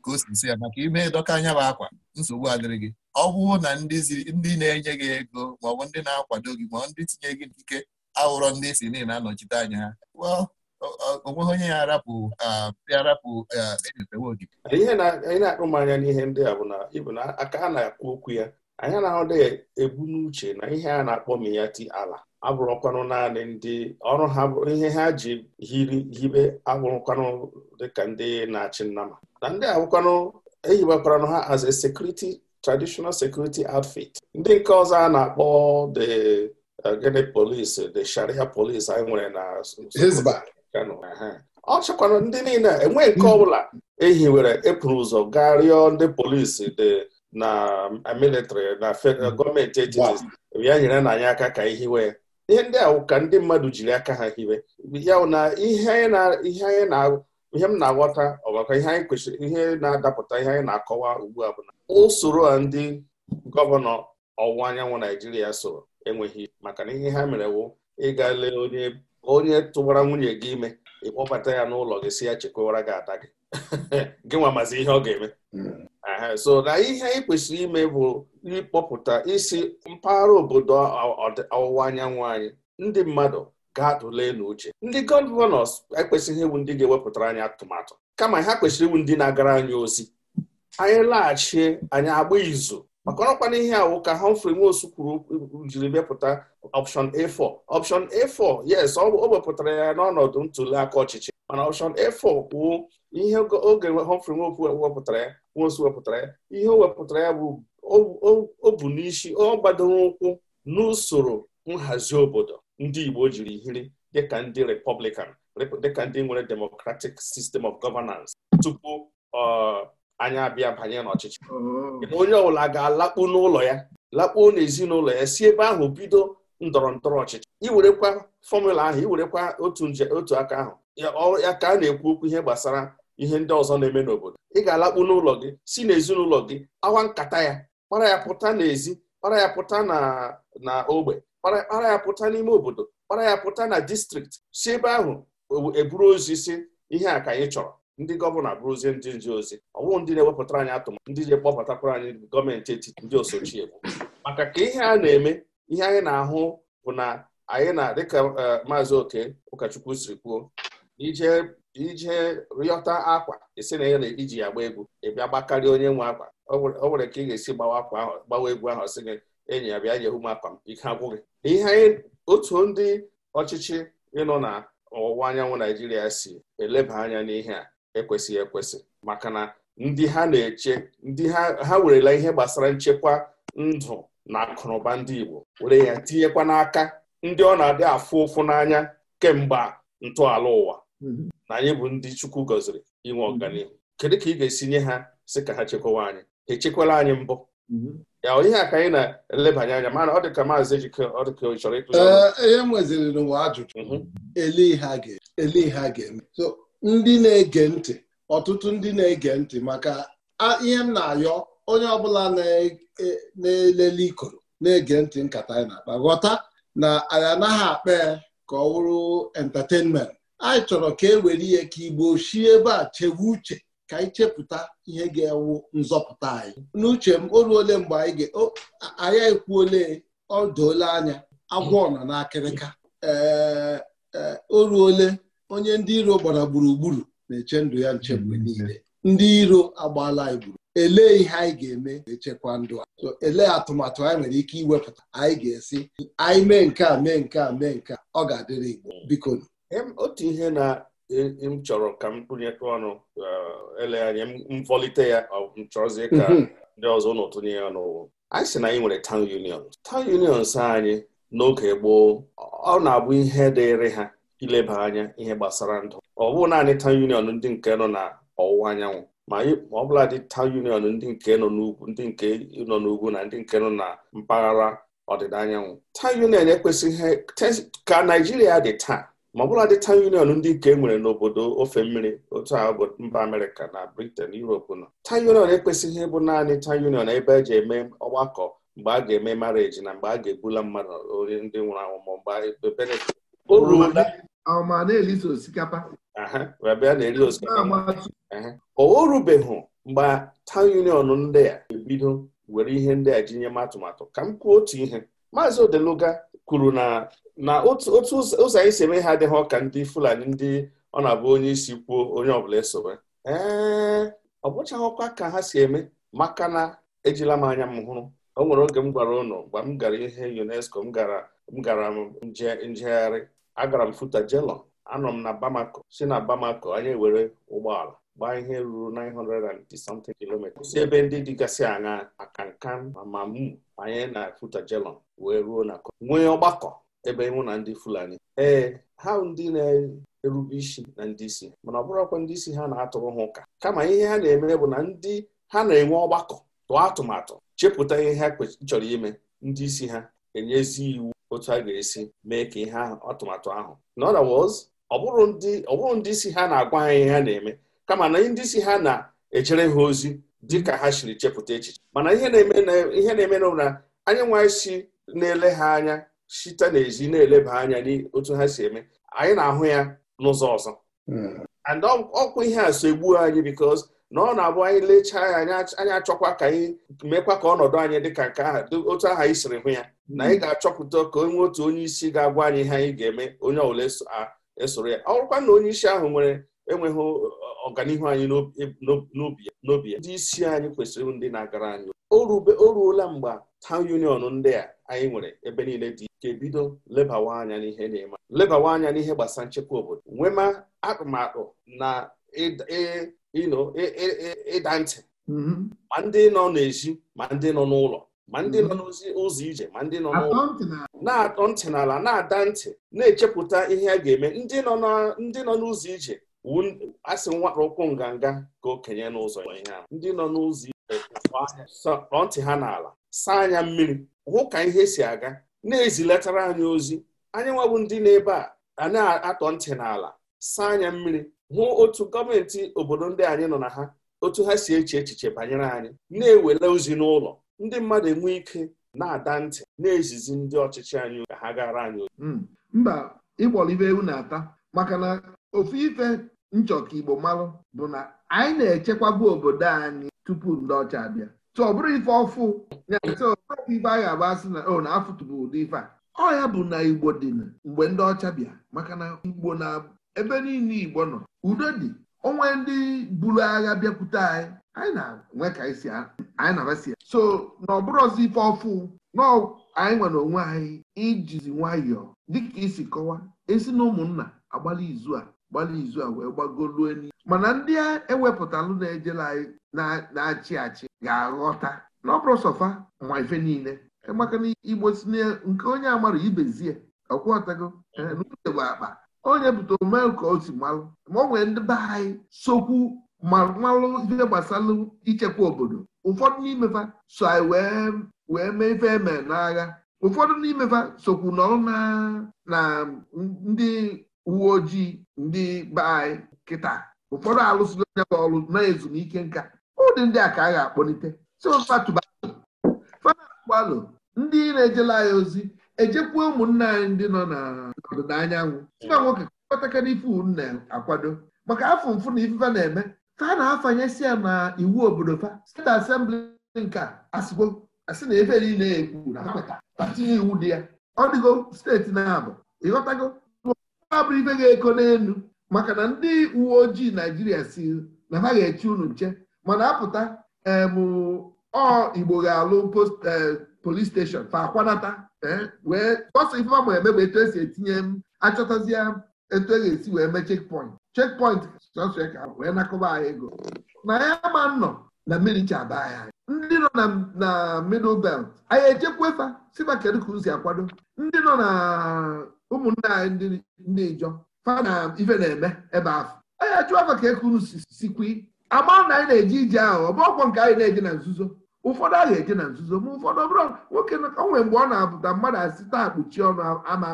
ka o si ya maka ime dọka anya bụ akwa nsogbu adịrị gị ọ bụrụ na ndị na-enye gị ego maọbụ ndị na-akwado gị maọbụ ndị tinye gị n'ike awụrọ ndị si niile na-anọchite anya ha onweghị onye ya arapụ arapụ enyetewe ogige ihe anyị na akpụ m anya n'ihe ndị a bụ na ịbụ na aka a na-akwu okwu ya anyị anaghị ebu n'uche na ihe a na-akpọ m ya ala abụrụkwanụ naanị ndị ọrụ ha bụ ihe ha ji hiri hibe abụrụkwanụ dịka ndị na-achị nnama na ndị abụkwanụ ehiwekwaranụ ha as a security traditional security outfit ndị nke ọzọ a na-akpọ the gịnị polisi the sharia polisi anyị nwere na ọ chọkwara ndị niile enweghị nke hmm. ọbụla ehiwere epụrụ ụzọ gaa rịọ ndị polisi dị na militrị na hmm. gọọmenti etiti ya nyere na anyị aka ka ihiwe ihe ndị ahụ ka ndị mmadụ jiri aka ha hiwe ya na ihe m na-aghọta ọgbakọ ihe anyị kwesịrị ihe na-adapụta ihe anyị na-akọwa ugbu a bụ na usoro a ndị gọvanọ ọwụwa anyanwụ Naijiria soro enweghị maka na ihe ha mere wụ ịga lee onye onye tụwara nwunye gị ime ịkpọbata ya n'ụlọ gị si ya chekwawara gị ata gị gị nwa mazi ihe ọ ga-eme so na ihe anyị kwesịrị ime bụ ịkpọpụta isi mpaghara obodo ọwụwa anyanwụ anyị ndị mmadụ ga-atụle n'uche ndị gọvanọs ekwesịghị iwu ndị ga-ewepụtara anyị atụmatụ kama ha kwesịrị iwu ndị na-agara anyị ozi anyị laghachie anyị agba izu maka ọrọkwana ihe a ka Humphrey Nwosu kwuru jiri mepụta option A4 option A4 yes ọ wepụtara ya n'ọnọdụ ntuli aka ọchịchị mana option A4 bụ ihe oge Humphrey Nwosu wepụtara ya wepụtara ya ihe o wepụtara ya bụ o bu n'isi ọ gbadoro ụkwụ n'usoro nhazi obodo ndị Igbo jiri hiri dịka ndị Republican dịka ndị nwere democratic system of governance tupu uh, anya abịa banye n'ọchịchị oh. onye ọbụla ga-alakpu n'ụlọ ya lakpuo n'ezinụlọ ya si ebe ahụ bido ndọrọ ndọrọ ọchịchị iwerekwa fọmụla ahụ iwerekwa otu nje otu aka ahụ ya ka a na-ekwu okwu ihe gbasara ihe ndị ọzọ na-eme n'obodo ị ga-alakpu n'ụlọ gị si n'ezinụlọ gị awa nkata ya kpara ya pụta n'ezi kpara ya pụta na na ogbe kpara ya pụta n'ime obodo kpara ya pụta na distrikti si ebe ahụ eburu e ozi si ihe a ka anyị chọrọ ndị gọvanọ abụrụzie ndị nje ozi ọ bụrụ ndị na-ewepụtara anyị atụmatụ ndị ji kpọpụtakwara anyị gọọmenti etiti ndị osochie bụ maka ka ihe a na-eme ihe anyị na-ahụ bụ na anyị na dịka e, maazị oke ụkọchukwu siri kwuo ije rịọta akwa esi na na iji ya gbaa egwu ịbịa gbakarịa onye nwe akwa ọ nwere ka ị ga-esi gbawa akwa ahụ gbawa egwu ahụ sị gị enyi ya bịa nyehu m akwa m ike agwụghị ihe anyị otu ndị ọchịchị ịnọ na ọwụwa anyanwụ naijiria si eleba anya n'ihe a ekwesịghị ekwesị maka na ndị ha na-eche ndị ha ha werela ihe gbasara nchekwa ndụ na akụnụba ndị Igbo were ya tinyekwa n'aka ndị ọ na-adị afụ ụfụ n'anya kemgbe ntọala ụwa mhm. na anyị bụ ndị Chukwu gọziri inwe mhm. ọganihu kedu ka ị ga-esi nye ha si ka ha chekwawa anyị echekwala anyị mbụ mhm. ya ihe aka anyị na-elebanye anya mana ọ dị ka maazị ejike ọ dị ka ọ chọrọ ee ihe nweziri n'ụwa ajụjụ eli ha ga-eme so ndị na-ege ntị ọtụtụ ndị na-ege ntị maka ihe m na-ayọ onye ọbụla na-elele ikoro na-ege ntị nkata anyị na-akpa ghọta na anyị anaghị akpa ya ka ọ wụrụ entertainment anyị chọrọ ka e were ihe ka igbo shi ebe a chewe uche ka anyị chepụta ihe ga-ewu nzọpụta anyị n'uche m o ruole mgbe anyị anyị ekwuole ọ doola anya agwọ nọ n'akịrịka ee e, o ruole onye ndị iro gbara gburugburu na-eche ndụ ya nche mgbe mm-hmm. niile ndị iro agbaala anyị gburu elee ihe anyị ga-eme echekwa ndụ a so elee atụmatụ anyị nwere ike iwepụta anyị ga-esi anyị mee nke a mee nke a mee nke a ọ ga-adịrị Igbo biko otu ihe na e, m chọrọ ka m kpụnyekọ ọnụ uh, ele anya m ya m chọrọzie ka mm-hmm. ndị ọzọ ụnụ tụnye ya n'ụwa anyị si na anyị nwere town unions town unions anyị n'oge gboo ọ na-abụ ihe dịịrị ha ileba anya ihe gbasara ndụ ọ bụghị naanị tawn union ndị nke nọ na ọwụwa anyanwụ ma ọ dị union ndị nke nọ n'ugwu ndị nke nọ n'ugwu na ndị nke nọ na mpaghara ọdịda anyanwụ tawn union ekwesịghị ka naijiria dị taa ma ọ bụla dị tawn union ndị nke e nwere n'obodo ofe mmiri otu a bụ mba amerịka na britain europe nọ tawn union ekwesịghị ịbụ naanị tawn union ebe eji eme ọgbakọ mgbe a ga-eme mareji na mgbe a ga-egbula mmadụ onye ndị nwụrụ anwụ ma mgbe ma na-eliso osikapa o rubeghị mgbe town union ndị a ebido were ihe ndị a ji nye m atụmatụ ka m kwuo otu ihe maazị odeluga kwuru na na otu ụzọ anyị si eme ha adịghị ọka ndị fulani ndị ọ na-abụ onye isi kwuo onye ọbụla esowe ee ọ ọkwa ka ha si eme maka na ejila m anya m hụrụ o nwere oge m gwara ụnụ mgbe m gara ihe UNESCO m gara m gara njegharị agara m Futajelong anọ m na Bamako si na Bamako anyị were ụgbọala gbaa ihe ruru 900 something si ebe ndị dịgasị anya akankan ma anyị na Futajelong wee ruo na nwee ọgbakọ ebe mụ na ndị Fulani ee ha ndị na-erube isi na ndị isi mana ọ bụrụkwa ndị isi ha na-atụrụ ha ụka kama ihe ha na-eme bụ na ndị ha na-enwe ọgbakọ tụọ atụmatụ chepụta ihe ha chọrọ ime ndị isi ha enyezi iwu otu a ga-esi mee ka ihe ahụ atụmatụ ahụ in other words ọ bụrụ ndị isi ha na-agwa ha ihe ha na-eme kama na ndị isi ha na echere ha ozi dị ka ha siri chepụta echiche mana ihe na-eme na anyị nwa si na-ele ha anya site n'ezi na-eleba anya n'otu ha si eme anyị na-ahụ ya n'ụzọ ọzọ hmm. ọkwa ihe a so egbuo anyị because na ọ na-abụ anyị lechaa ya anyị achọkwa ka anyị mekwa ka ọnọdụ anyị dịka nke aha otu aha anyị siri hụ ya na anyị ga-achọpụta ka onwe otu onye isi ga-agwa anyị ihe anyị ga-eme onye ọbụla esoro ya ọ na onye isi ahụ nwere enweghị ọganihu anyị n'obi ya ndị isi anyị kwesịrị ndị na-agara anyị o ruola mgbe tawn union ndị a anyị nwere ebe niile dị ike bido lebawa anya n'ihe na-eme lebawa anya n'ihe gbasara nchekwa obodo nwema atụmatụ na e ịda e, e, e, ntị mm-hmm. ma ndị nọ n'ezi ma ndị nọ n'ụlọ ma ndị nọ mm-hmm. n'ụzọ ije ma ndị nọ n'ụlọ na-atọ ntị n'ala na-ada ntị na-echepụta ihe a ga-eme ndị nọ n'ụzọ ije asị nwakpa ụkwụ nganga ka okenye n'ụzọ ihe ndị nọ n'ụzọ ije tọọ ntị ha n'ala saa anya mmiri hụ ka ihe si aga na-ezilatara anyị ozi anyị nwabụ ndị na a a na-atọ ntị n'ala saa anya mmiri hụ otu gọọmenti obodo ndị anyị nọ na ha otu ha si eche echiche banyere anyị na-ewele ozi n'ụlọ ndị mmadụ enwe ike na-ada ntị na-ezizi ndị ọchịchị anyị ka ha gara anyị hmm. mba ịkpọrọ ibe ewu na-ata maka na ofu ife nchọka Igbo malụ bụ na anyị na-echekwabu obodo anyị tupu ndị ọcha abịa ọ bụrụ ife ọfụ ife a ga-agba asị na o oh, na-afụtụbụ ụdị ife a ọ ya bụ na Igbo dị mgbe ndị ọcha bịa maka na Igbo na ebe niile Igbo nọ udo dị onwe ndị buru agha bịakwute anyị anyị na-enwe ka anyị si anyị na-abasi so na ọ ife ọfụ na anyị nwere onwe anyị ijizi nwayọọ dịka isi kọwa esi na ụmụnna agbalị izu a gbalị izu a wee gbagoluo enyi mana ndị ewepụtalụ na-ejela anyị na-achị achị ga-aghọta na ọ bụrụ sọfa ma ife niile maka na igbo si nke onye amara ibezie ọkwọtago eh, n'uche bụ akpa onye bụta omee ka o si malụ ma ọ nwere ndị be anyị sokwu malụ ife gbasara ichekwa obodo ụfọdụ n'imefa so anyị wee mee ife eme n'agha ụfọdụ n'imefa sokwu nọrọ na ndị uwe ojii ndị be anyị kịta ụfọdụ alụsịla onye bụ ọrụ na ezumike nka ụdị ndị a ka a ga-akpọlite si fatụbalụ ndị na-ejela anyị ozi ejekwuo ụmụnna anyị ndị nọ na anyanwụ nwa nwoke kpataka n'ife na-akwado maka afọ mfụ na ifufe na-eme fa na-afanyesi ya na iwu obodo fa steeti asembli nke asịgo asị na ebe niile ekwu na akweta patinye iwu dị ya ọ dịgo steeti na-abụ ịghọtago abụrụ ife ga-eko n'elu maka na ndị uwe ojii naijiria si na ha ga-echi unu nche mana apụta ee ọ igbo ga-alụ post eh, polis steshọn fa akwanata eh, wee ọsọ ifefa ma eme bụ etu esi etinye m achọtazie etu e ga-esi wee mee chekpọint chekpọint sọsọ ka wee nakọba anyị ego na ya ma nnọ na mmiri chaba anyị ndị nọ na middle belt anyị echekwafa si maka kedu ka si akwado ndị nọ na ụmụnne anyị ndị ijọ fa na ife na-eme ebe ahụ anyị achụ afa ka ekuru sikwi ama na anyị na eji ije ahụ ọ bụ ọkwọ nke anyị na eji na nzuzo ụfọdụ agha eje na nzuzo ma ụfọdụ ọbụla nwoke o nwere mgbe ọ na-apụta mmadụ asị taa kpuchi ọnụ ama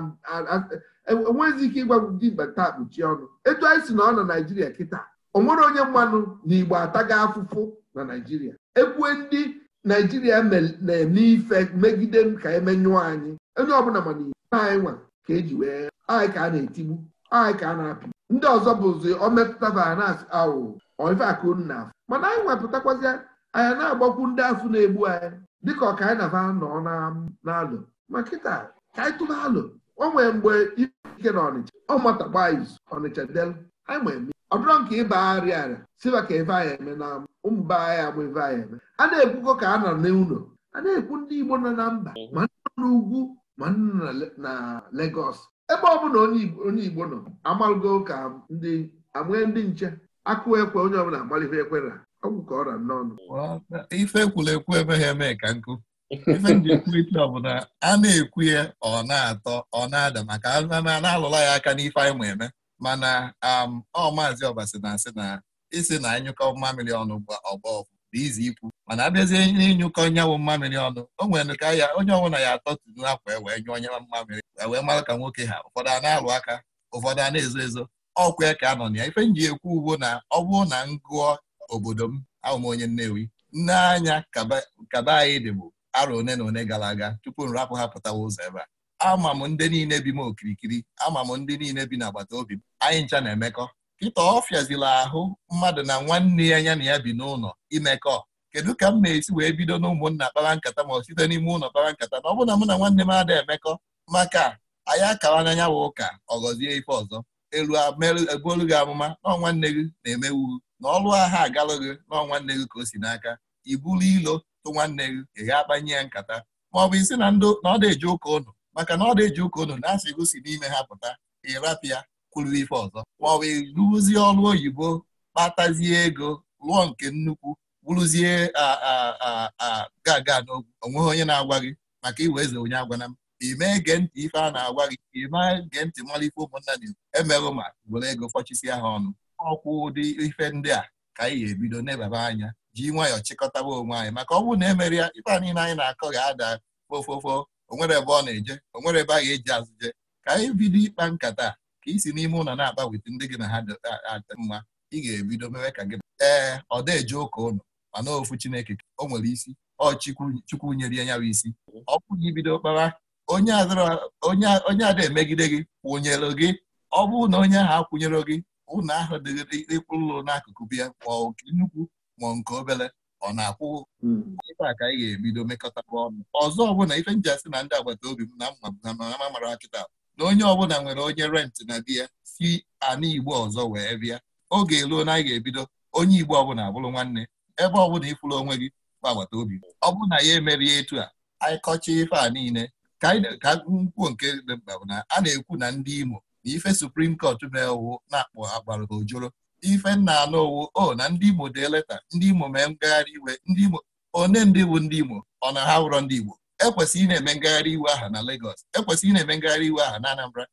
enweghịzi e, ike ịgwa ndị mba taa kpuchi ọnụ etu anyị si na ọ na naijiria kịta o nwere onye mmanụ na igbo ataga afụfụ na naijiria ekwue ndị naijiria na-eme ife megide m ka emenyụọ anyị onye ọbụla mana anyị nwa ka eji wee anyị ka a na-etigbu anyị ka a na-apị ndị ọzọ bụzi ọ metụta na asị Ọ ife akụ na mana anyị nwepụtakwazịa anyị na-agbakwu ndị afụ na-egbu anyị dịka ọka anyị na-aba nọ n'alụ ma kịta ka anyị tụba alụ o nwee mgbe ike na ọnịcha ọ matakpa izu ọnịcha del anyị ma eme ọ bụrụ nke ịba arịa arịa siba ka ebe anyị eme na ụmụ be anyị agba ebe anyị eme a na-ekwukọ ka a na n'ụlọ a na-ekwu ndị Igbo nọ na mba ma nọ n'ugwu ma nọ na legos ebe ọ bụla onye Igbo nọ amalụgo ka ndị amụe ndị nche akụ ekwe onye ọbụla amalife ekwera ọ bụ ka ọ na ife ekwula ekwu emeghị eme ka nkụ ife nji ekwurịta ọbụla a na-ekwu ya ọ na-atọ ọ na-ada maka na-alụla ya aka n'ife anyị ma eme mana um, ọ maazị ọbasi na-asị na isi na anyụkọ mmamịrị ọnụ ọgbọ bụ izi ikwu mana abịazie ịnyụkọ nyanwụ mmamịrị ọnụ o nwere ka ya onye ọbụla ya atọ tụrụ akwa e wee nyụọ onye mmamịrị wee mara ka nwoke ha ụfọdụ a na-alụ aka ụfọdụ a na-ezo ezo ọkwa ya ka a na ya ife nji ekwu ugbo na ọ bụrụ na ngụọ obodo m ahụ m onye Nnewi nne anya kaba anyị dị bụ arọ one na one gara aga tupu m rapụ ha pụtawa ụzọ ebe a ama m ndị niile bi m okirikiri ama m ndị niile bi n'agbata obi m anyị ncha na-emekọ kịta ọ ahụ mmadụ na nwanne ya ya na ya bi n'ụlọ imekọ kedu ka m na-esi wee bido n'ụmụnna kpara nkata ma ọ site n'ime ụlọ kpara nkata na ọ bụ na mụ na nwanne m ada emekọ maka anyị akara n'anya bụ ụka ọ ife ọzọ elu ebuolu e gị amụma na nwanne gị na-emewu na ọlụ agha agala gị nọọ nwanne gị ka o si n'aka ibulu ilo tụ nwanne gị ị ga akpanye ya nkata ma ọ bụ isi na ndị na ọ ụka ụnụ maka na ọ ụka ụnụ na-asị gosi n'ime ha pụta ịrapịa kwuru ife ọzọ ma ọ bụ ịrụzie ọrụ oyibo kpatazie ego lụọ nke nnukwu a ga aga n'ogwu onweghị onye na-agwa gị maka iwe eze onye agwana m ime ege ntị ife a na-agwa gị ime gee ntị mara ife ụmụnna na-ekwu emerụ ma were ego fọchisi ha ọnụ ọkwụ ụdị ife ndị a ka anyị ga-ebido n'ebaba anya ji nwayọ chịkọtaba onwe anyị maka ọ bụrụ na emere ya ife a niile anyị na-akọ ga-ada ofofo onwere ebe ọ na-eje onwere ebe a ga-eji azụje ka anyị bido ịkpa nkata ka isi n'ime ụlọ na-akpa ndị gị na ha adị mma ị ga-ebido mewe ka gị ee ọ deje ụka ụnụ mana ofu Chineke o nwere isi ọ chukwu nyere ya nyawa isi ọ bụghị ibido kpawa onye ada emegide gị kwụnyere gị ọ bụrụ na onye ahụ akwụnyere gị ụlọ ahụ dịghịrị ịkwụ ụlọ n'akụkụ bịa ma nke nnukwu ma nke obere ọ na-akwụ ife hmm. a ka anyị ga-ebido mekọta ọnụ ọzọ ọbụla ife nji asị na ndị agbata obi m na mma na amamara na onye ọbụla nwere onye rentị na di ya si anụ igbo ọzọ wee bịa oge eluo na anyị ga-ebido onye igbo ọbụla abụrụ nwanne ebe ọbụla ịfụrụ onwe gị bụ agbata obi ọ bụrụ na ya emerie etu a anyị kọchaa ife a niile ka nkwuo nke dị mkpa bụ na a na-ekwu na ndị Imo na ife suprim kọt na-ewu na-akpọ agbara ojoro ife nna anụ owu o na ndị Imo dee leta ndị Imo mee ngagharị iwe ndị Imo one ndị bụ ndị Imo ọ na ha wụrọ ndị Igbo ị na-eme ngagharị iwe aha na Lagos ị na-eme ngagharị iwe aha na Anambra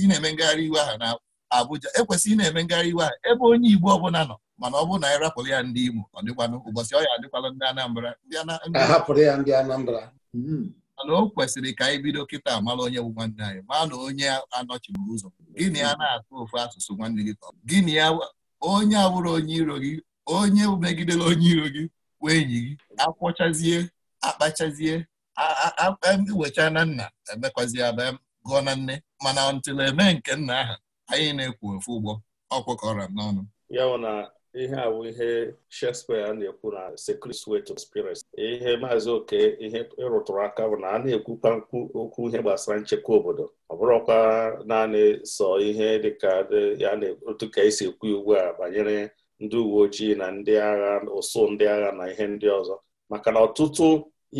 ị na-eme ngagharị iwe aha na Abuja ị na-eme ngagharị iwe aha ebe onye Igbo ọbụla nọ mana ọ bụrụ na anyị ya ndị Imo ọ dịkwanụ ụbọchị ọ ya adịkwala ndị Anambra ndị Anambra hmm. mana o kwesịrị ka anyị bido kịta mara onye bụ nwanne anyị maa na onye anọchiburu ụzọ gịnị ya na-atụ ofu asụsụ nwanne gị gịnị ya onye abụrụ onye iro gị onye megidere onye iro gị wee enyi gị akwọchazie akpachazie wecha na nna emekwazie aba gụọ na nne mana ntụle eme nke nna aha anyị na-ekwu ofu ụgbọ ọkwụkọrọ n'ọnụ ihe a bụ ihe Shakespeare na-ekwu na secret sweet spirits ihe maazị oke ihe ịrụtụrụ aka bụ na a na-ekwukwa okwu ihe gbasara nchekwa obodo ọ bụrụkwa naanị sọ ihe dịka ya na otu ka esi ekwu ugbu a banyere ndị uwe ojii na ndị agha ụsụ ndị agha na ihe ndị ọzọ maka na ọtụtụ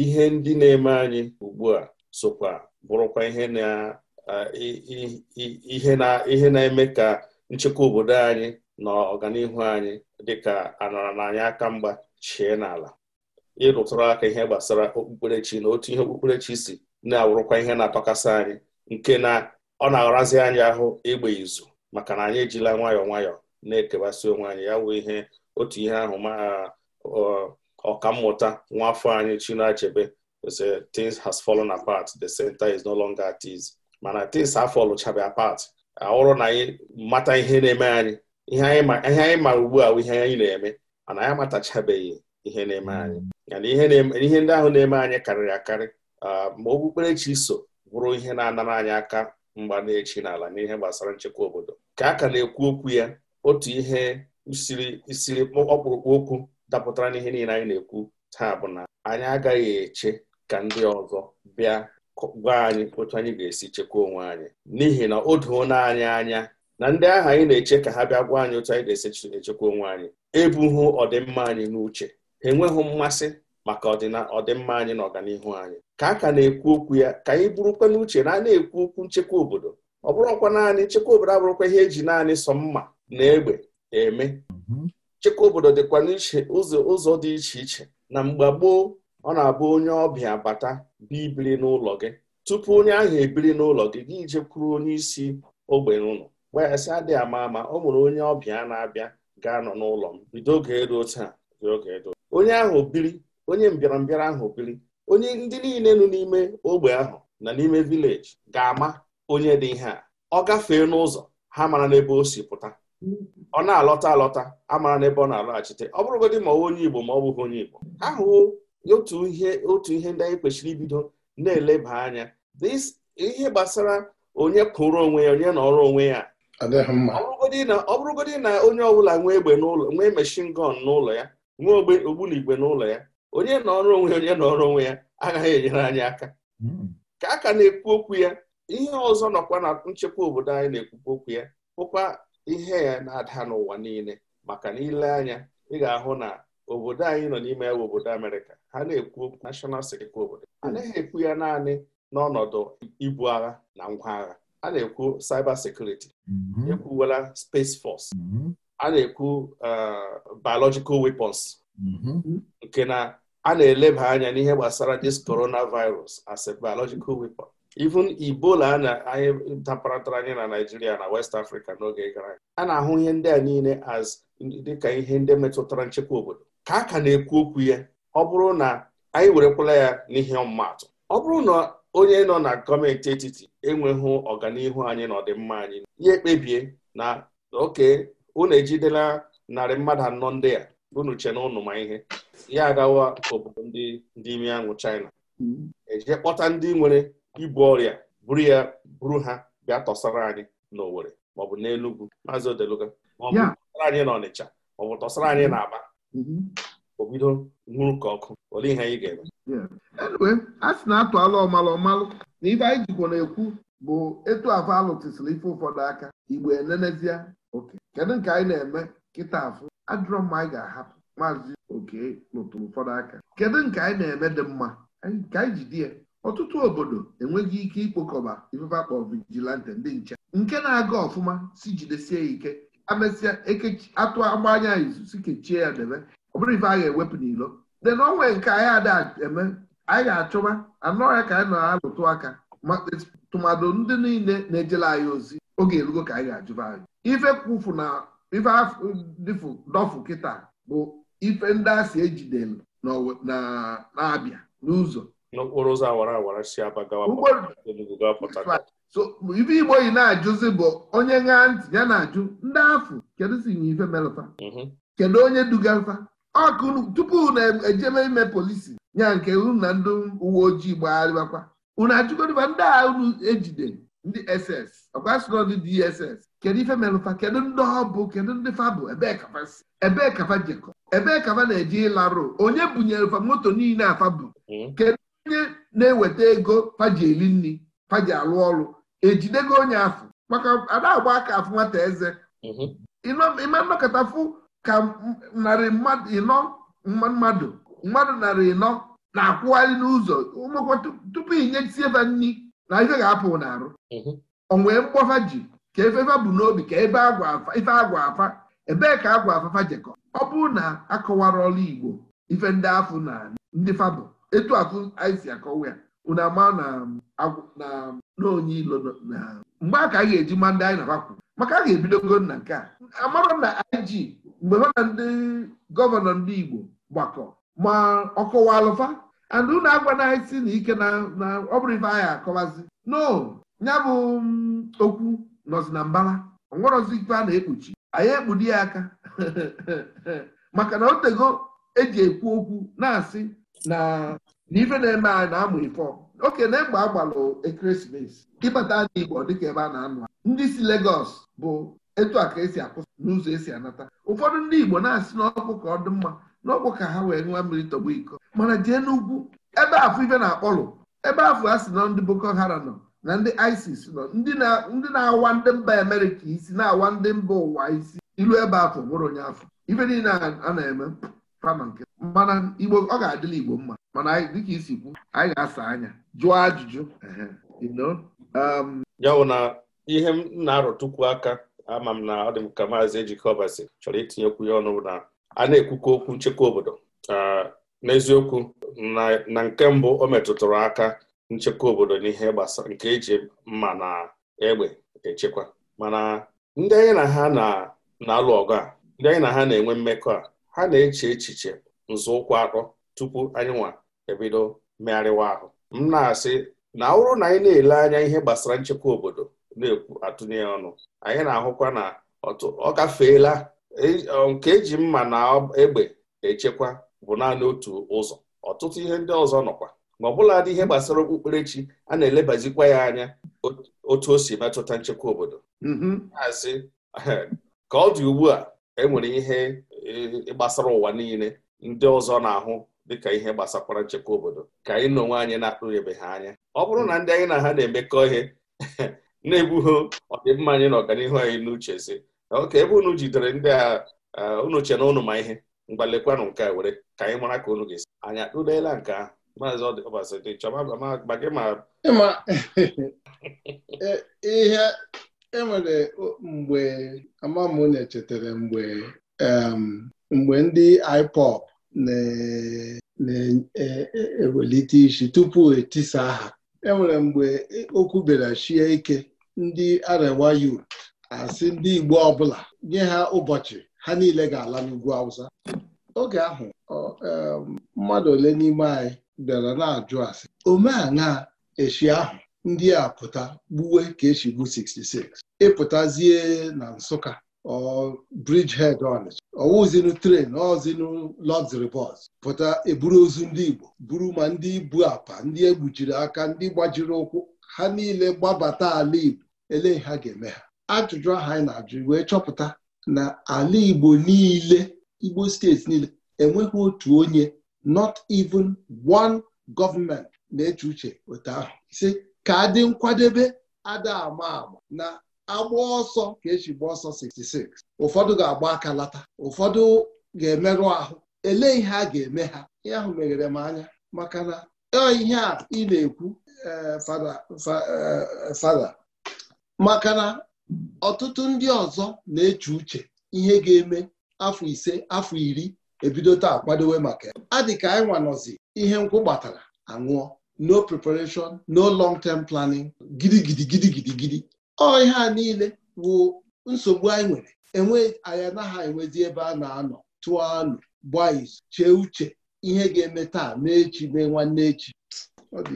ihe ndị na-eme anyị ugbu a sokwa bụrụkwa ihe na-eme ka nchekwa obodo anyị na ọganihu anyị dịka anọrọ na anyị aka mgba chie n'ala ịrụtụrụ aka ihe gbasara okpukperechi na otu ihe okpukperechi si na-awụrụkwa ihe na-atọkasị anyị nke na ọ na-arazi anyị ahụ ịgba izu maka na anyị ejila nwayọọ nwayọọ na-ekewasị onwe anyị ya wụ ihe otu ihe ahụ ma mmụta nwaafọ anyị Chinua Achebe say has fallen apart the center is no longer at ease mana tins afọ lụchabe apart ahụrụ na anyị mata ihe na-eme anyị ihe anyị ma ugbu a bụ ihe anyị na-eme mana anyị amatachabeghị ihe na-eme anyị ihe ndị ahụ na-eme anyị karịrị akarị uh, ma okpukperechi so bụrụ ihe na-anara anyị aka mgba na-echi n'ala n'ihe gbasara nchekwa obodo ka a ka na-ekwu okwu ya otu ihe siri isiri ọkpụrụkpụ okwu dapụtara n'ihe niile anyị na-ekwu taa bụ na anyị agaghị eche ka ndị ọzọ bịa gwa anyị otu anyị ga-esi chekwa onwe anyị n'ihi na o doona anyị anya na ndị ahụ anyị na-eche ka ha bịa gwa anyị otu anyị ga-echekwa onwe anyị ebughị ọdịmma anyị n'uche ha enweghị mmasị maka ọdịmma anyị na ọganihu anyị ka a ka na-ekwu okwu ya ka anyị bụrụkwa n'uche na a na-ekwu okwu nchekwa obodo ọ bụrụkwa naanị nchekwa obodo abụrụkwa ihe eji naanị sọ mma na egbe eme mhm. nchekwa obodo dịkwa n'iche ụzọ dị iche iche na mgbe gboo ọ na-abụ onye ọbịa bata bịa ibiri n'ụlọ gị tupu onye ahụ ebiri n'ụlọ gị gị jekwuru onye isi ogbe n'ụlọ wee sị adị ama ama ọ mụrụ onye ọbịa na-abịa ga-anọ n'ụlọ m bido oge eruo taa onye ahụ biri onye mbịarambịara ahụ biri onye ndị niile nọ n'ime ogbe ahụ na n'ime vileji ga-ama onye dị ihe a ọ gafee n'ụzọ ha mara n'ebe o si pụta ọ na-alọta alọta amara n'ebe ọ na-alọghachite ọ bụrụgodị ma ọ onye Igbo ma ọ bụghị onye Igbo ahụhụ otu ihe otu ihe ndị anyị kwesịrị ibido na-eleba anya ihe gbasara onye kụrụ onwe ya onye nọrọ onwe ya ọ bụrụgodị na onye ọbụla nwee egbe n'ụlọ nwee meshin gọn n'ụlọ ya nwee ogbunigwe n'ụlọ ya onye na onwe onye nọọrụ onwe ya agaghị enyere anyị aka hmm. ka a ka na-ekwu okwu ya ihe ọzọ nọkwa na nchekwa obodo anyị na-ekwukwa okwu ya bụkwa ihe ya na-ada n'ụwa niile maka na ile anya ị ga-ahụ na obodo anyị nọ n'ime ya obodo Amerịka ha na-ekwu okwu nashọnal sekit obodo hmm. anaghị ekwu ya naanị n'ọnọdụ ibu agha na ngwa agha a na-ekwu cyber security mm-hmm. ekwuwela space force mm-hmm. a na-ekwu uh, biological weapons mm-hmm. nke na a na-eleba anya n'ihe gbasara this coronavirus as a biological weapon even Ebola a anyị taparatara anya na Naijiria na West Africa n'oge gara aga a na-ahụ ihe ndị a niile as dịka ihe ndị metụtara nchekwa obodo ka a ka na-ekwu okwu ya ọ bụrụ na anyị werekwala ya n'ihe ọmụmatụ ọ bụrụ na onye nọ na gọọmenti etiti enweghị ọganihu anyị na anyị ya ekpebie na oke unu ejidela narị mmadụ anọ ndị a unu che na ụnụ ma ihe ya agawa obodo ndị ndị ime anwụ China mm-hmm. eje kpọta ndị nwere ibu ọrịa buru ya buru ha bịa tọsara anyị n'owere maọbụ n'Enugwu maazị Odeluga maọbụ tọsara anyị n'Ọnịcha maọbụ tọsara anyị n'Aba mm-hmm. o bido nwụrụ ka ọkụ olee ihe anyị ga-eme enwe a sị na-atụ alụ ọmalụ ọmalụ na ife anyị jikwa na-ekwu bụ etu afọ alụtụsịrị ife ụfọdụ aka igbo enenezie oke kedu nke anyị na-eme kịta afụ adịrọ mma anyị ga-ahapụ maazị oke lụtụrụ ụfọdụ aka kedu nke anyị na-eme dị mma nke anyị ji di ya ọtụtụ obodo enweghị ike ikpokọba ifefe vigilante ndị nche nke na-aga ọfụma si jidesie ya ike amesịa atụ agbanya izu si kechie ya debe bụrụ ife a ga-ewepụ n'ilo de na onwe nke anyị ada eme anyị ga-achọba anọghị ka anyị na-alụtụ aka tụmadụ ndị niile na-ejela anyị ozi oge erugo ka anyị ga-ajụba anyị ife kwufu na ife dịfụ dọfụ kịta bụ ife ndị a si ejidelu na-abịa n'ụzọ n'okporo ụzọ awara awara si aba gawa so ibe igbo yi na-ajụzi bụ onye ṅaa ntị ya na-ajụ ndị afụ kedu si nye ife melụta mhm. kedu onye dugalụta ọkụ tupu na ejebe e ime polisi nya nke unu na ndị uwe ojii gbagharịbakwa unu ajụgodiba ndị a unu ejide ndị ss ọkwasịrọ ndị dss kedu ife merụfa kedu ndị ọ kedu ndị fa bụ ebee kafa si ebee kafa jekọ ebee kafa na-eje ịlarụ onye bunyere fa moto niile a bụ hmm. kedu onye na-eweta ego faji eri nri faji alụ ọrụ ejidego onye afọ maka ada agba aka afụ nwata eze hmm. ịma nnọkọta fụ ka narị mmadụ ịnọ mmadụ mmadụ narị ịnọ na-akwụgharị n'ụzọ ụmụkwọ tupu inyesie ebe nri na ife ga-apụ n'arụ mhm. onwee mkpọfa ji ka efefa bụ n'obi ka ebe ife agwa afa ebee ka agwa afafa jekọ ọ bụrụ na akọwara ọrụ Igbo ife ndị afụ na ndị fabụ etu afụ anyị si akọwa ya unu ama na onye ilo mgbe a ka a ga-eji ma anyị na-akwakwu maka a ga-ebidogo na nke a amara na I.G. mgbe ha na ndị gọvanọ ndị Igbo gbakọ ma ọ alụfa and unu agwana anyị si na ike na ọ bụrụ ife anyị akọwazi no ya bụ mm, okwu nọzi na mbala ọnwerọzi ife a na-ekpuchi anyị ekpudi ya aka maka na otego eji ekwu okwu na-asị na ife na-eme anyị na-amụ ife oke na egbe agbalụ ekeresimesi ịbata anyị Igbo dịka ebe a na-anụ ndị si Legọs bụ etu a ka esi akwụsị n'ụzọ esi anata ụfọdụ ndị Igbo na-asị n'ọkụ ka ọ dị mma n'ọkụ ka ha wee nwa mmiri tọgbu iko mana jee n'ugwu ebe afọ ife na-akpọlụ ebe afọ a sị na ndị Boko Haram nọ na ndị ISIS nọ ndị na-awa ndị mba Amerịka isi na-awa ndị mba ụwa isi ilu ebe afọ bụrụ onye afọ ife niile a na-eme fama nke mana Igbo ọ ga-adịla Igbo mma mana dịka isi kwu anyị ga-asa anya jụọ ajụjụ um, ya bụ na ihe m na-arọtukwu aka ama m na ọ dị m ka maazị ejikọbasi chọrọ itinyekwu ya ọnụ na a na-ekwukwa okwu nchekwa obodo n'eziokwu na nke mbụ o metụtụrụ aka nchekwa obodo n'ihe gbasara nke eji mma na egbe echekwa mana ndị anyị na ha na-alụ ọgụ a ndị anyị na ha na-enwe mmekọ a ha na-eche echiche nzọụkwụ atọ tupu anyị nwa ebido megharịwa ahụ m na-asị na ọ bụrụ na anyị na-ele anya ihe gbasara nchekwa obodo na-ekwu atụnye ya ọnụ anyị na-ahụkwa na ọ gafeela e, nke eji mma na egbe echekwa bụ naanị otu ụzọ ọtụtụ ihe ndị ọzọ nọkwa ma ọ bụla dị ihe gbasara okpukperechi a na-elebazikwa ya anya otu o si metụta nchekwa obodo mm-hmm. asị ka ọ dị ugbu a enwere ihe e, e gbasara ụwa niile ndị ọzọ na-ahụ dịka ihe gbasakwara nchekwa obodo ka anyị na onwe anyị na-akpụghebe ha anya ọ bụrụ na ndị anyị na ha na-emekọ ihe na-egbughị ọdịmma anyị na ọganihu anyị n'uche si oke ebe unu jidere ndị a unu che na unu ma ihe mgbalekwanụ nke a were ka anyị mara ka unu ga-esi anyị atụleela nke ahụ maazị ọbasịdị chọba gị ma e, ihe enwere mgbe amam na-echetara mgbe mgbe ndị IPOB na-ewelite e, e, isi tupu etisa aha enwere mgbe okwu bịara shie ike ndị Arewa Youth asị ndị Igbo ọbụla nye ha ụbọchị ha niile ga-ala n'ugwu Awụsa oge ahụ mmadụ ole n'ime anyị bịara na-ajụ asị omeana echi ahụ ndị a pụta gbuwe ka esi gbu 66 ịpụtazie na Nsụka ọ Bridgehead Ọnịcha ọwụzinu tren ọzinu luxury bus pụta eburu ozu ndị Igbo buru ma ndị ibu apa ndị egbujiri aka ndị gbajiri ụkwụ ha niile gbabata ala Igbo elee ha ga-eme ha ajụjụ aha anyị na-ajụ wee chọpụta na ala Igbo niile Igbo steeti niile enweghị otu onye not even one gọọmenti na-eche uche otu ahụ ise ka adị nkwadebe ada ama ama na agba ọsọ ka eji gba ọsọ 66 ụfọdụ ga-agba aka lata ụfọdụ ga-emerụ ahụ elee ihe a ga-eme ha ihe ahụ meghere m anya maka na ihe a ị na-ekwu eh, fada maka na ọtụtụ ndị ọzọ na-eche uche ihe ga-eme afọ ise afọ iri ebido taa kwadowe maka ya dị ka anyị nwanọzi ihe nkwụ gbatara aṅụọ no preparation no long term planning gidigidi gidigidi gidi ọ ihe a niile bụ nsogbu anyị nwere enwe anyanaghị anaghị enwezi ebe a na-anọ tụọ anụ gbaa izu chee uche ihe ga-eme taa mee mee nwanne echi ife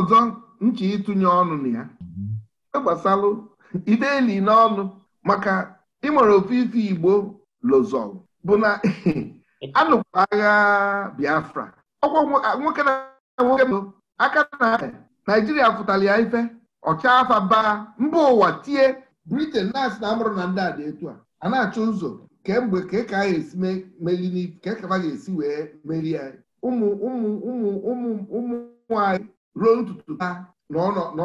ọzọ ịtụnye ọnụ na gbasalụ ideli n'ọnụ maka ịmara ofu ife Igbo lozol bụ na anụkwa agha Biafra ọkwa nwoke na nwoke aka na Naijiria pụtara ya ife ọcha afa baa mba ụwa tie Britain na-asị na amụrụ na ndị a dị etu a a achụ ụzọ kemgbe ka ka a ga-esi wee meri anyị ụmụ ụmụ ụmụ ụmụ ụmụ anyị ruo ntutu ha na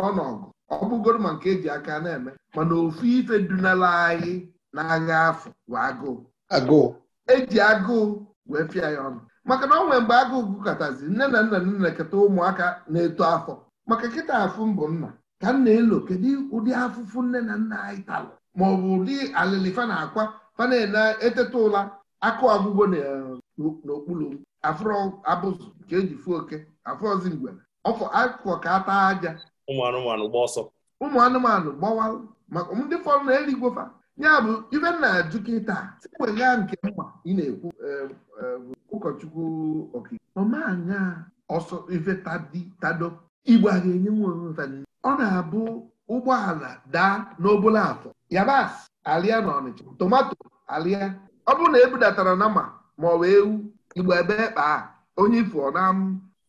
ọnọgụ ọ bụgoro ma nke eji aka na-eme mana ofu ife dunala anyị n'agha afọ agụụ agụụ eji agụụ wee pịa ya ọnụ maka na ọ nwere mgbe agụụ gụkọtazi nne na nna nna na-eketa ụmụaka na-eto afọ maka nkịta afụ mbụ nna ka nna elo kedu ụdị afụfụ nne na nna anyị talụ ma ọ bụ ụdị alịlị fa na-akwa fa na-eteta ụla akụ ọgwụgwọ eh, n'okpuru afụrụ abụzụ nke eji fụ oke afụ ozi mgbe ọfọ akụkọ ka ata aja ụmụ anụmanụ gba ọsọ ụmụ anụmanụ gbawalụ maka ndị fọrọ na eligwofa ya bụ ibe na ajụ kịta wega nke mma ị na-ekwu e, e, ụkọchukwu ọmanya ọsọ ife tado igbo a ga-enye ọ na-abụ ụgbọala daa n'obula afọ yabasị alịa na ọnịcha tomato alịa ọ bụrụ na ebudatara nama ma ọ bụ ewu igbo ebe e kpaa onye ifo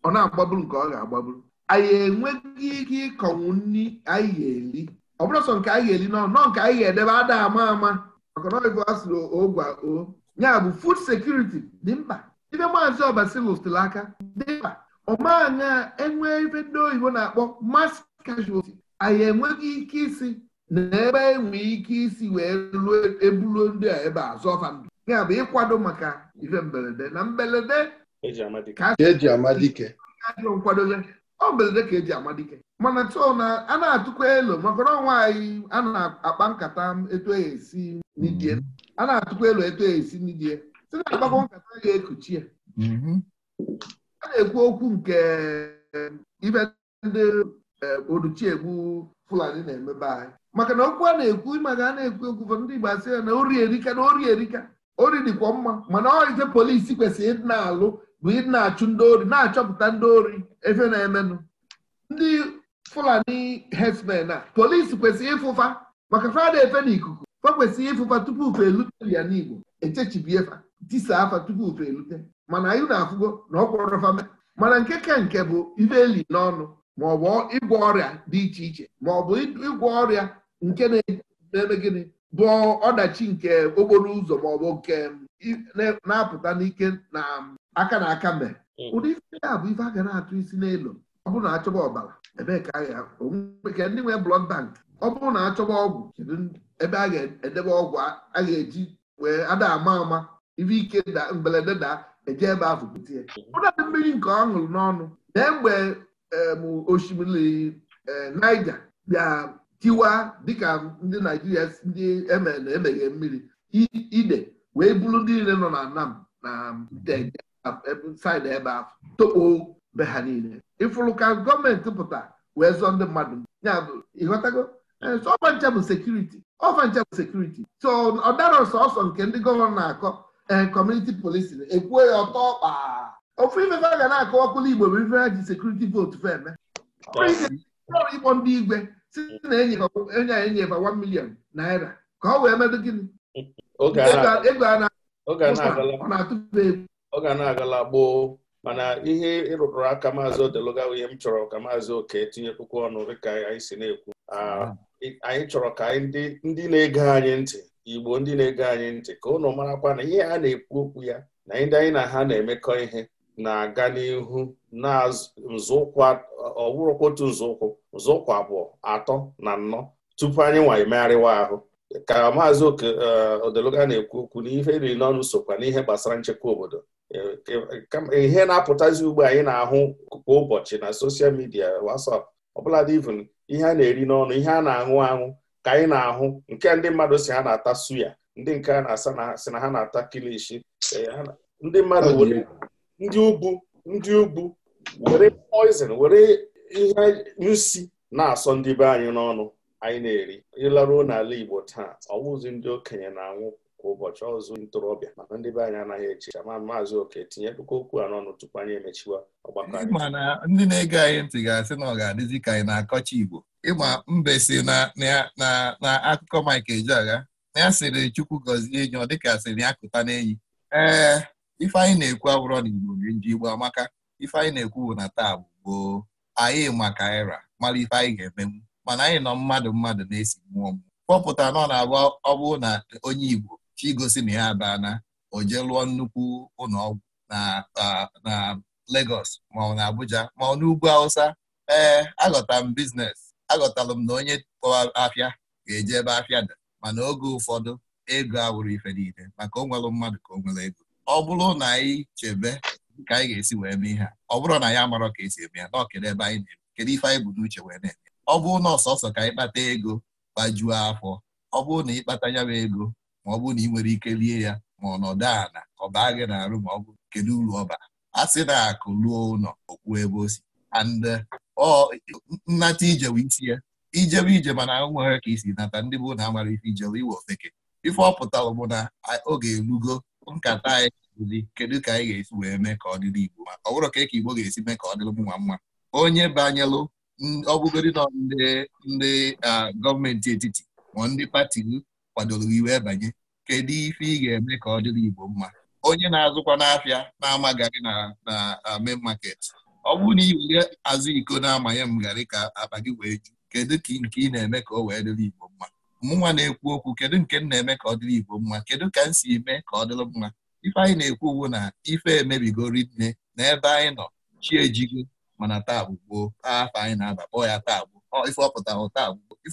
ọ na-agbaburu nke ọ ga-agbaburu anyị enweghị ike ịkọnwu nri anyị ga-eli ọ bụrụ sọ nke anyị ga-eli nọọ, nke anyị ga-edebe ada ama ama maka na ọgụ asụrụ ogwa o ya bụ food security dị mkpa ibe maazị tụrụ aka dị mkpa ọmaanya enwe ebe ndị oyibo na-akpọ mass casualty anyị enweghị ike isi na ebe enwe ike isi wee ruo ebulu ndị a ebe a zọfa ndụ ya bụ ịkwado maka ife mberede na mberede ka eji amadike nkwado ọ belede ka eji ama dike mana tụọ na a na-atụkwa elu. maka na ọnwa anyị a na-akpa nkata etu esi n'idie a na-atụkwa elu etu esi n'idie si na akpakọ nkata ga-ekuchi ya mm-hmm. a na-ekwu okwu nke ibe ndị eh, oduchiegbu fulani na-emebe anyị maka na okwu a na-ekwu maka a na-ekwu okwu ndị Igbo asị ya na ori erika na ori erika ori dịkwa mma mana ọ ise polisi kwesịrị ịdị na-alụ bụ ị na-achụ ndị ori na-achọpụta ndị ori efe na-emenụ ndị fulani herdsmen a polisi kwesịrị ịfụfa maka fada efe na ikuku fa kwesịrị ịfụfa tupu fe elute ya n'igbo echechibiefa tisa afa tupu fe elute mana anyị na-afụgo na ọkwọrọfame mana nke ka nke bụ ife eli n'ọnụ maọbụ ịgwọ ọrịa dị iche iche maọbụ ịgwọ ọrịa nke na-eme gịnị bụ ọdachi nke okporo ụzọ maọbụ nke na-apụta n'ike na aka na aka mbe hmm. ụdị ife ya bụ ife a ga na-atụ isi n'elu ọ bụrụ na achọba ọbara ebee ka ndị nwee blọd bank ọ bụrụ na achọba ọgwụ kedu ebe a ga-edebe ọgwụ a ga-eji wee ada ama ama ife ike da daa da e eje ebe ahụ bute ya ụdadị hmm. mmiri nke ọ ṅụrụ n'ọnụ na mgbe osimiri eh, Naija bịa tiwa dịka ndị Naijiria ndị e emeghe mmiri ide wee buru ndị niile nọ na Nam na Nteje saịdị ebe eh, eh, ahụ tokpo be ha niile ịfụrụ ka gọọmenti pụta wee zụọ ndị mmadụ ịghọtago ọfancha bụ eh, sekuriti ọfancha bụ sekuriti so ọ dara sọsọ nke ndị gọvanọ na-akọ ee kọmuniti polisi ekwuo ya ọtọ ọkpa ofu ifefe a ga na-akọ ọkụlụ igbo bụ ife ji sekuriti vootu fe eme ịkpọ ndị igwe si na enye a enyefa 1 milion naira ka ọ wee medo gịnị ego a na-atụba egwu ọ ga na-agala gboo mana ihe ịrụrụ aka maazị odeluga ihe m chọrọ ka maazị oke tinye puku ọnụ dịka anyị si na-ekwu anyị chọrọ ka ndị na-ege anyị ntị igbo ndị na-ege anyị ntị ka ụnụ marakwa na ihe a na-ekwu okwu ya na ndị anyị na ha na-emekọ ihe na-aga n'ihu na nzọụkwụ otu nzọụkwụ nzọụkwụ abụọ atọ na nnọ tupu anyị nwa emegharịwa ahụ ka maazị eh, odeluga na-ekwu okwu na ihe riri n'ọnụ sokwa n'ihe gbasara nchekwa obodo ihe na-apụtazi ugbo anyị na-ahụ kwa ụbọchị na soshal midia WhatsApp ọbụladị even ihe a na-eri n'ọnụ ihe a na-aṅụ aṅụ ka anyị na-ahụ nke ndị mmadụ si ha na-ata suya ndị nke a na-asa si na ha na-ata kilishi e, ndị mmadụ ndị ugwu ndị ugwu were poison were ihe nsi na-asọ ndị be anyị n'ọnụ anyị na-eri ịlaruo n'ala Igbo taa ọwụzi ndị okenye na-anwụ ụbọchị ọzụ ntorobịa mana ndị be anyị anaghị eche ma maazị oke tinyedụkwa okwu a n'ọnụ tupu anyị emechiwa ọgbakọ anyị mana ndị na-ege anyị ntị ga-asị na ọ ga-adịzi ka anyị na-akọcha Igbo ịma mbe si na akụkọ Mike Ejeagha na ya sịrị Chukwu gọzie enyi ọ dịka sịrị ya kụta n'enyi ee ife anyị na-ekwu abụrọ na Igbo nji Igbo amaka ife anyị na-ekwu bụ na taa bụ gboo anyị maka era mara ife anyị ga-emenwu mana anyị nọ mmadụ mmadụ na-esi mmụọ mmụọ kpọpụta nọ na-abụ ọ bụrụ na onye Igbo chigosi na ya abana o jee lụọ nnukwu ụlọọgwụ na Lagos ma ọ na Abuja ma ọ n'ugwu Hausa ee aghọta m biznes aghọtara m na onye kpọwa afịa ga-eje ebe afịa dị mana oge ụfọdụ ego awụrụ ife niile maka o nwere mmadụ ka o nwere ego ọ bụrụ na anyị chebe ka anyị ga-esi wee mee ihe ọ bụrụ na ya amarọ ka esi eme ya na ọkere ebe anyị na-eme kedu ife anyị bụ n'uche wee na-eme ọ bụrụ na ọsọsọ ka anyị kpata ego gbajuo afọ ọ bụrụ na ịkpata ya ego ma ọ bụ na ị nwere ike lie ya ma ọnọdụ ana ọ baa gị na-arụ ma ọ bụ kedu uru ọba a sị na akụ ruo ụlọ okwu ebe o si and uh, ọ nnata ijewe isi ya ijebe ije mana nwere ka isi nata ndị bụ na amara ife ijewe iwe ofeke ife ọ pụtara bụ na oge elugo nkata anyị kedu ka anyị ga-esi wee mee ka ọ dịrị Igbo ma ọ bụrụ ka e ka Igbo ga-esi mee ka ọ dịrị mma mma onye banyelụ ọbụgodi nọ ndị uh, gọọmenti etiti ma ndị pati kwadoro iwe banye kedu ife ị ga-eme ka ọ dịrị Igbo mma onye na-azụkwa n'afịa na-ama na uh, main market ọ bụrụ na ị azụ iko na-amanye m garị ka akpa gị wee ju kedu ka nke ị na-eme ka ọ wee dịrị Igbo mma mụnwa na-ekwu okwu kedu nke m na-eme ka ọ dịrị Igbo mma kedu ka m si eme ka ọ dịrị mma ife anyị na-ekwu ugbu na ife emebigori nne na ebe anyị nọ chi ejigo mana taa gboo afọ anyị na-aba kpọọ ya taa gboo ife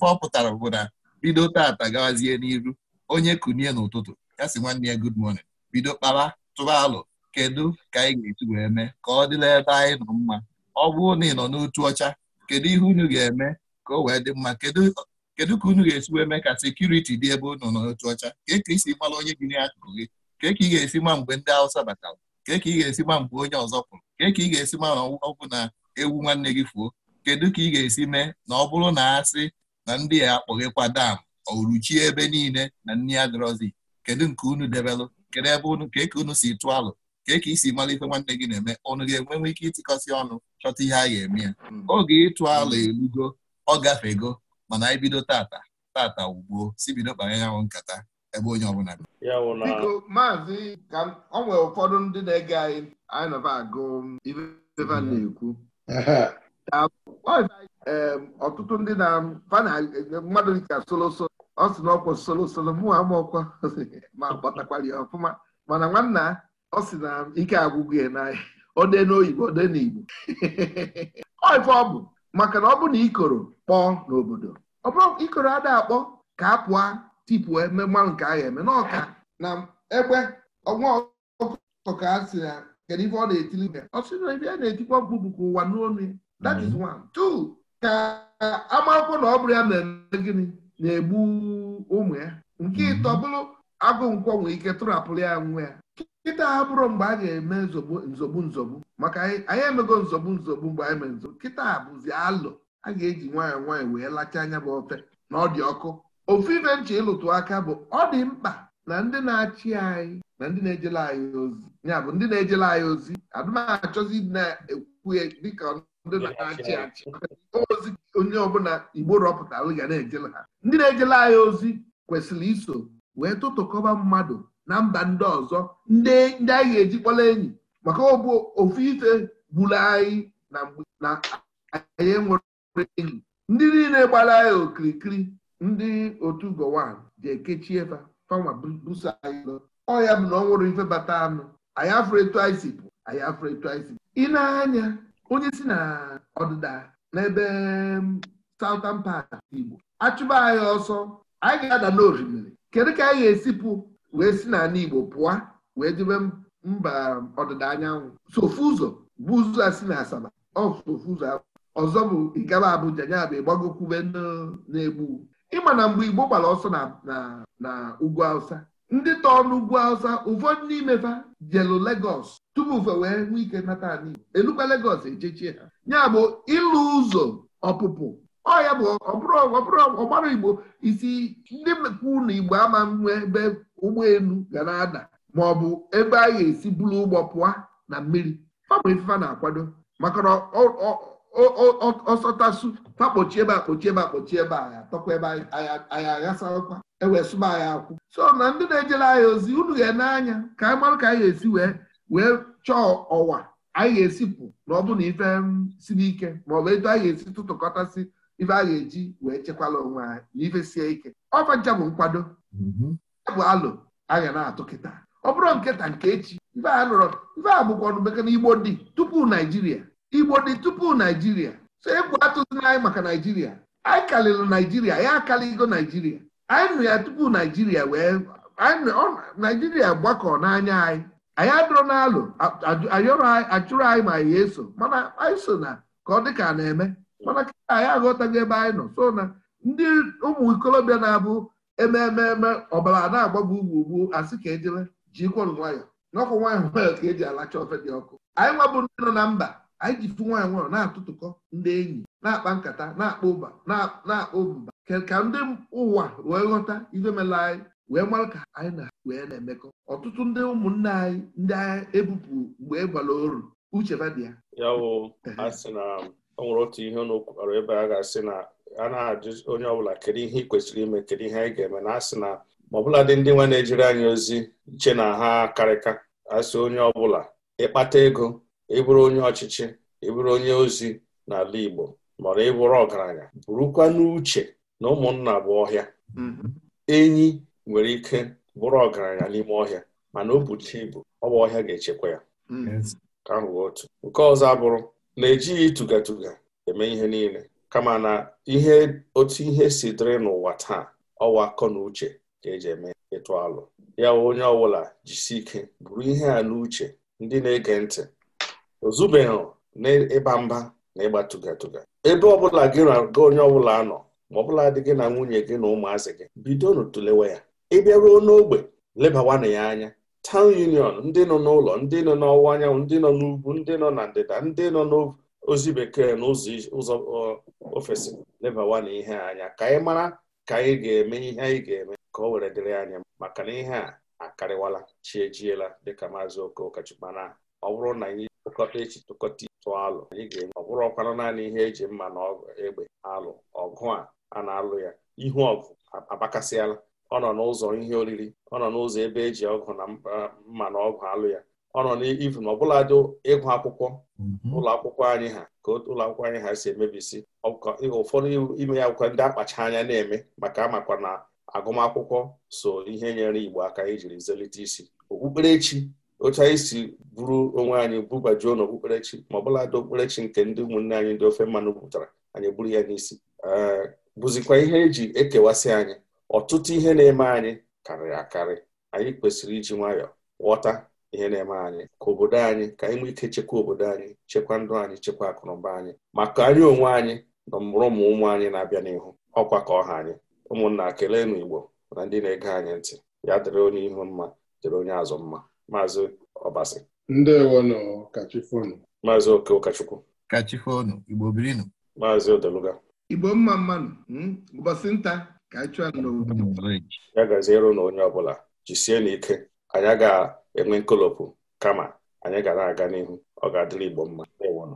ọ pụtara bụ na bido tata gawazie n'iru onye kunie n'ụtụtụ ya si nwanne ya gud morning bido kpara tụrụ alụ kedu ka anyị ga etu wee mee ka ọ dịla ebe anyị nọ mma ọ bụrụ na ị nọ n'otu ọcha kedu ihe unu ga-eme ka o wee dị mma kedu ka unu ga-esi wee mee ka sekuriti dị ebe unu nọ n'otu ọcha kee ka isi mara onye gị n'akụkụ gị kee ka ị ga-esi ma mgbe ndị Hausa batara kee ka ị ga-esi ma mgbe onye ọzọ pụrụ kee ka ị ga-esi ma na ọgwụ na ewu nwanne gị fuo kedu ka ị ga-esi mee na ọ bụrụ na asị na ndị a akpọghịkwa dam oruchie ebe niile na nni adịrọzi kedu nke unu debelụ kedu ebe unu ka eke unu si tụọ alụ ka eke isi malite nwanne gị na-eme ọnụ ga-enwenwe ike ịtịkọsị ọnụ chọta ihe a ga-eme ya hmm. oge ịtụ alụ elugo ọ gafego mana anyị bido tata tata ugbuo si bido kpara ya nkata ebe onye ọbụla biko maazị ka ọ nwere ụfọdụ ndị na-ege anyị anyị nọba agụ ife hmm. na-ekwu ọtụtụ ndị na mmadụ dịka solosolo ọ sị na ọkwụ solosolo mụ amaọkwa ma gbatakwara ya ọfụma mana nwanna ọ sị na ike agwụgwụ ya n'ahịa ode n'oyibo ode n'igbo oife ọ bụ maka na ọ bụ na ikoro kpọọ n'obodo ọ bụrụ ikoro ada akpọ ka a pụọ tipụọ mmanụ nke agha eme n'ọka na egbe ọnwa ọkụkọ ka a sị na kedu ife ọ na-etili ọ sị na ife a na-etikwa mkpu bụ ụwa n'onu that is mm-hmm. one two ka agbaakwụkwọ na ọ bụrụ ya na-eme gịnị na-egbu ụmụ ya nke mhm. ịtọ bụrụ agụ nkwọ nwee ike tụrapụrụ ya nwa ya kịta ha bụrụ mgbe a ga-eme nzogbu nzogbu maka anyị emego nzogbu nzogbu mgbe anyị mere nzogbu kịta bụzi alụ a ga-eji nwayọọ nwaanyị wee lacha anya bụ ofe na ọ dị ọkụ ofu ife nche ịlụtụ aka bụ ọ dị mkpa na ndị na-achị anyị na ndị na-ejele anyị ozi ya bụ ndị na-ejele anyị ozi adụmachọzi na-ekwu dịka ndị na-achị achị ozi onye ọbụla igbo rọpụtara ga na-ejele ha ndị na-ejele anyị ozi kwesịrị iso wee tụtụkọba mmadụ na mba ndị ọzọ ndị anyị ga-eji kpọla enyi maka ọbụ ofu ife gburu anyị na mgbe na anyị nwere enyi ndị niile gbara anyị okirikiri ndị otu Gowon ga-ekechi ebe fanwa buso anyị ọ ya bụ na ọ nwụrụ ife bata anụ anyị afụrụ etu anyị si pụ anyị afụrụ etu anyị si ị na-anya onye si na ọdịda n'ebe um, Southern Part Igbo achụba anyị ọsọ anyị ga-ada n'orimiri kedu ka anyị ga-esipụ wee si n'ala Igbo pụọ wee jebe mba ọdịda anyanwụ sofu ụzọ bụ ụzọ a si na Asaba o ụzọ ọzọ bụ ịgaba Abuja ya bụ ịgbagokwube n'egbu ịma na mgbe Igbo gbara ọsọ na ugwu ndị tọọ n'ugwu awụsa ụfọdụ n'imefa jelu legos tupu fe wee nwee ike nata ala igbo elukwa legos ejechie ha ya bụ ịlụ ụzọ ọpụpụ ọya bụ ọgbara igbo isi ndị mekwu na igbo ama nwe ebe ụgbọelu ga na-ada ma ọ bụ ebe a ga-esi bulu ụgbọ pụọ na mmiri ọ bụ na-akwado maka na ọsọtasụ takpochi ebe akpochi ebe akpochi ebe agha tọkwa ebe anyị aghasakwa ewee sụba agha akwụ so na ndị na-ejere anyị ozi unu na n'anya ka anyị e marụ ka anyị e ga-esi wee chọọ ọwa anyị e ga-esipụ na ọ bụ na ife mm, siri ike bụ etu anyị ga-esi tụtụkọtasị ife a ga-eji wee chekwala onwe anyị na ife sie ike Ọfacha bụ nkwado mm-hmm. bụ alụ anya na-atụ kịta ọ bụrụ nkịta nke echi ife a nụrụ ife a bụkwa ọnụ bekee igbo dị tupu naijiria igbo dị tupu naijiria so egwu atụzina anyị maka naijiria anyị kalịrị naijiria ya akalịgo naijiria anyị nụ ya tupu naijiria wee naijiria gbakọ n'anya anyị anyị adụrụ n'alụ achụrụ anyị ma ya eso mana anyị so na ka ọ dị ka na-eme mana ka anyị aghọtago ebe anyị nọ so na ndị ụmụ ikolobịa na-abụ ememe ọbara na-agbagbu ugwu ugwu asị ka ejele jikwa nwayọ n'ọkụ nwanyị nwayọ ka eji alacha ofe dị ọkụ anyị nwabụ ndị nọ na mba anyị ji nwaanyị nwụrụ na-atụtụkọ ndị enyi na-akpa nkata na-akpa ụba na-akpa mba ka ndị ụwa wee ghọta ife mela anyị wee mara ka anyị na wee na-emekọ ọtụtụ ndị ụmụnne anyị ndị agha ebupụ mgbe e oru uche badị ya na o nwere otu ihe n'okwukwara ebe a ga-asị na a na-ajụ onye ọbụla kedu ihe ị kwesịrị ime kedu ihe anyị ga-eme na asị na ma ọbụla dị ndị nwa na-ejiri anyị ozi che na ha karịka asị onye ọbụla ịkpata ego ịbụrụ onye ọchịchị ịbụrụ onye ozi n'ala Igbo maọbụ ịbụrụ ọgaranya bụrụkwa n'uche na ụmụnna bụ ọhịa mm-hmm. enyi nwere ike bụrụ ọgaranya n'ime ọhịa mana o bucha ibu ọ bụ ọhịa ga-echekwa ya mm-hmm. ka ahụ otu nke ọzọ abụrụ na-ejighị ịtụgatuga eme ihe niile kama na ihe otu ihe si dịrị n'ụwa taa ọwa akọ na uche ka eji eme ịtụ alụ ya onye ọbụla jisi ike bụrụ ihe a n'uche ndị na-ege ntị ozubeghị n'ịba mba na ịgba tụgatụga ebe ọbụla gị na onye ọbụla nọ ma ọbụla dị gị na nwunye gị na ụmụazị gị bidonu tụlewe ya ịbịa ruo n'ogbe lebawana ya anya tawn union ndị nọ n'ụlọ ndị nọ n'ọwụwa anyanwụ ndị nọ n'ugwu ndị nọ na ndịda ndị nọ n'ozi bekee na ụzọ ofesi lebawana ihe anya ka anyị mara ka anyị ga-eme ihe anyị ga-eme ka o were dịrị anya maka na ihe a akarịwala chiejiela dịka maazị okokachukwuna ọ bụrụ na anyị tụkọta echi tụkọta ịtụ alụ anyị ga-enwe ọ bụrụkwanụ naanị ihe eji mma na egbe alụ ọgụ a a na-alụ ya ihu ọgụ abakasịala ọ nọ n'ụzọ ihe oriri ọ nọ n'ụzọ ebe eji ọgụ na mma na ọgụ alụ ya ọ nọ n'ivu na ọbụladị ịgụ akwụkwọ mm-hmm. ụlọ akwụkwọ anyị ha ka ụlọ akwụkwọ anyị ha si emebisi ụfọdụ ime ya akwụkwọ ndị akpacha anya na-eme maka amakwa na agụmakwụkwọ so ihe nyere Igbo aka ijiri zelite isi okpukperechi otu anyị si bụrụ onwe anyị bubajuo n'okpukperechi ma ọbụladị okpukperechi nke ndị ụmụnne anyị ndị ofe mmanụ pụtara anyị bụrụ ya n'isi eh, bụzikwa ihe eji ekewasị anyị ọtụtụ ihe na-eme anyị karịrị akarị anyị kwesịrị iji nwayọọ ghọta ihe na-eme anyị ka obodo anyị ka anyị nwee ike chekwa obodo anyị chekwa ndụ anyị chekwa akụnụba anyị maka anyị onwe anyị na mụrụ ụmụ ụmụ anyị na-abịa n'ihu ọkwa ka ọha anyị ụmụnna kelee na Igbo na ndị na-ege anyị ntị ya dịrị onye ihu mma dịrị onye azụ mma maazị Ọbasi ndewonụ kachifonu maazị Oke Ụkachukwu kachifonu Igbo birinu maazị Odeluga Igbo mma mmanụ hmm? ụbọchị nta ka anyị chụọ n'obodo ya gaziere na onye ọbụla jisie n'ike anyị ga-enwe nkolopụ kama anyị ga na-aga n'ihu ọ ga-adịrị Igbo mma ndewonụ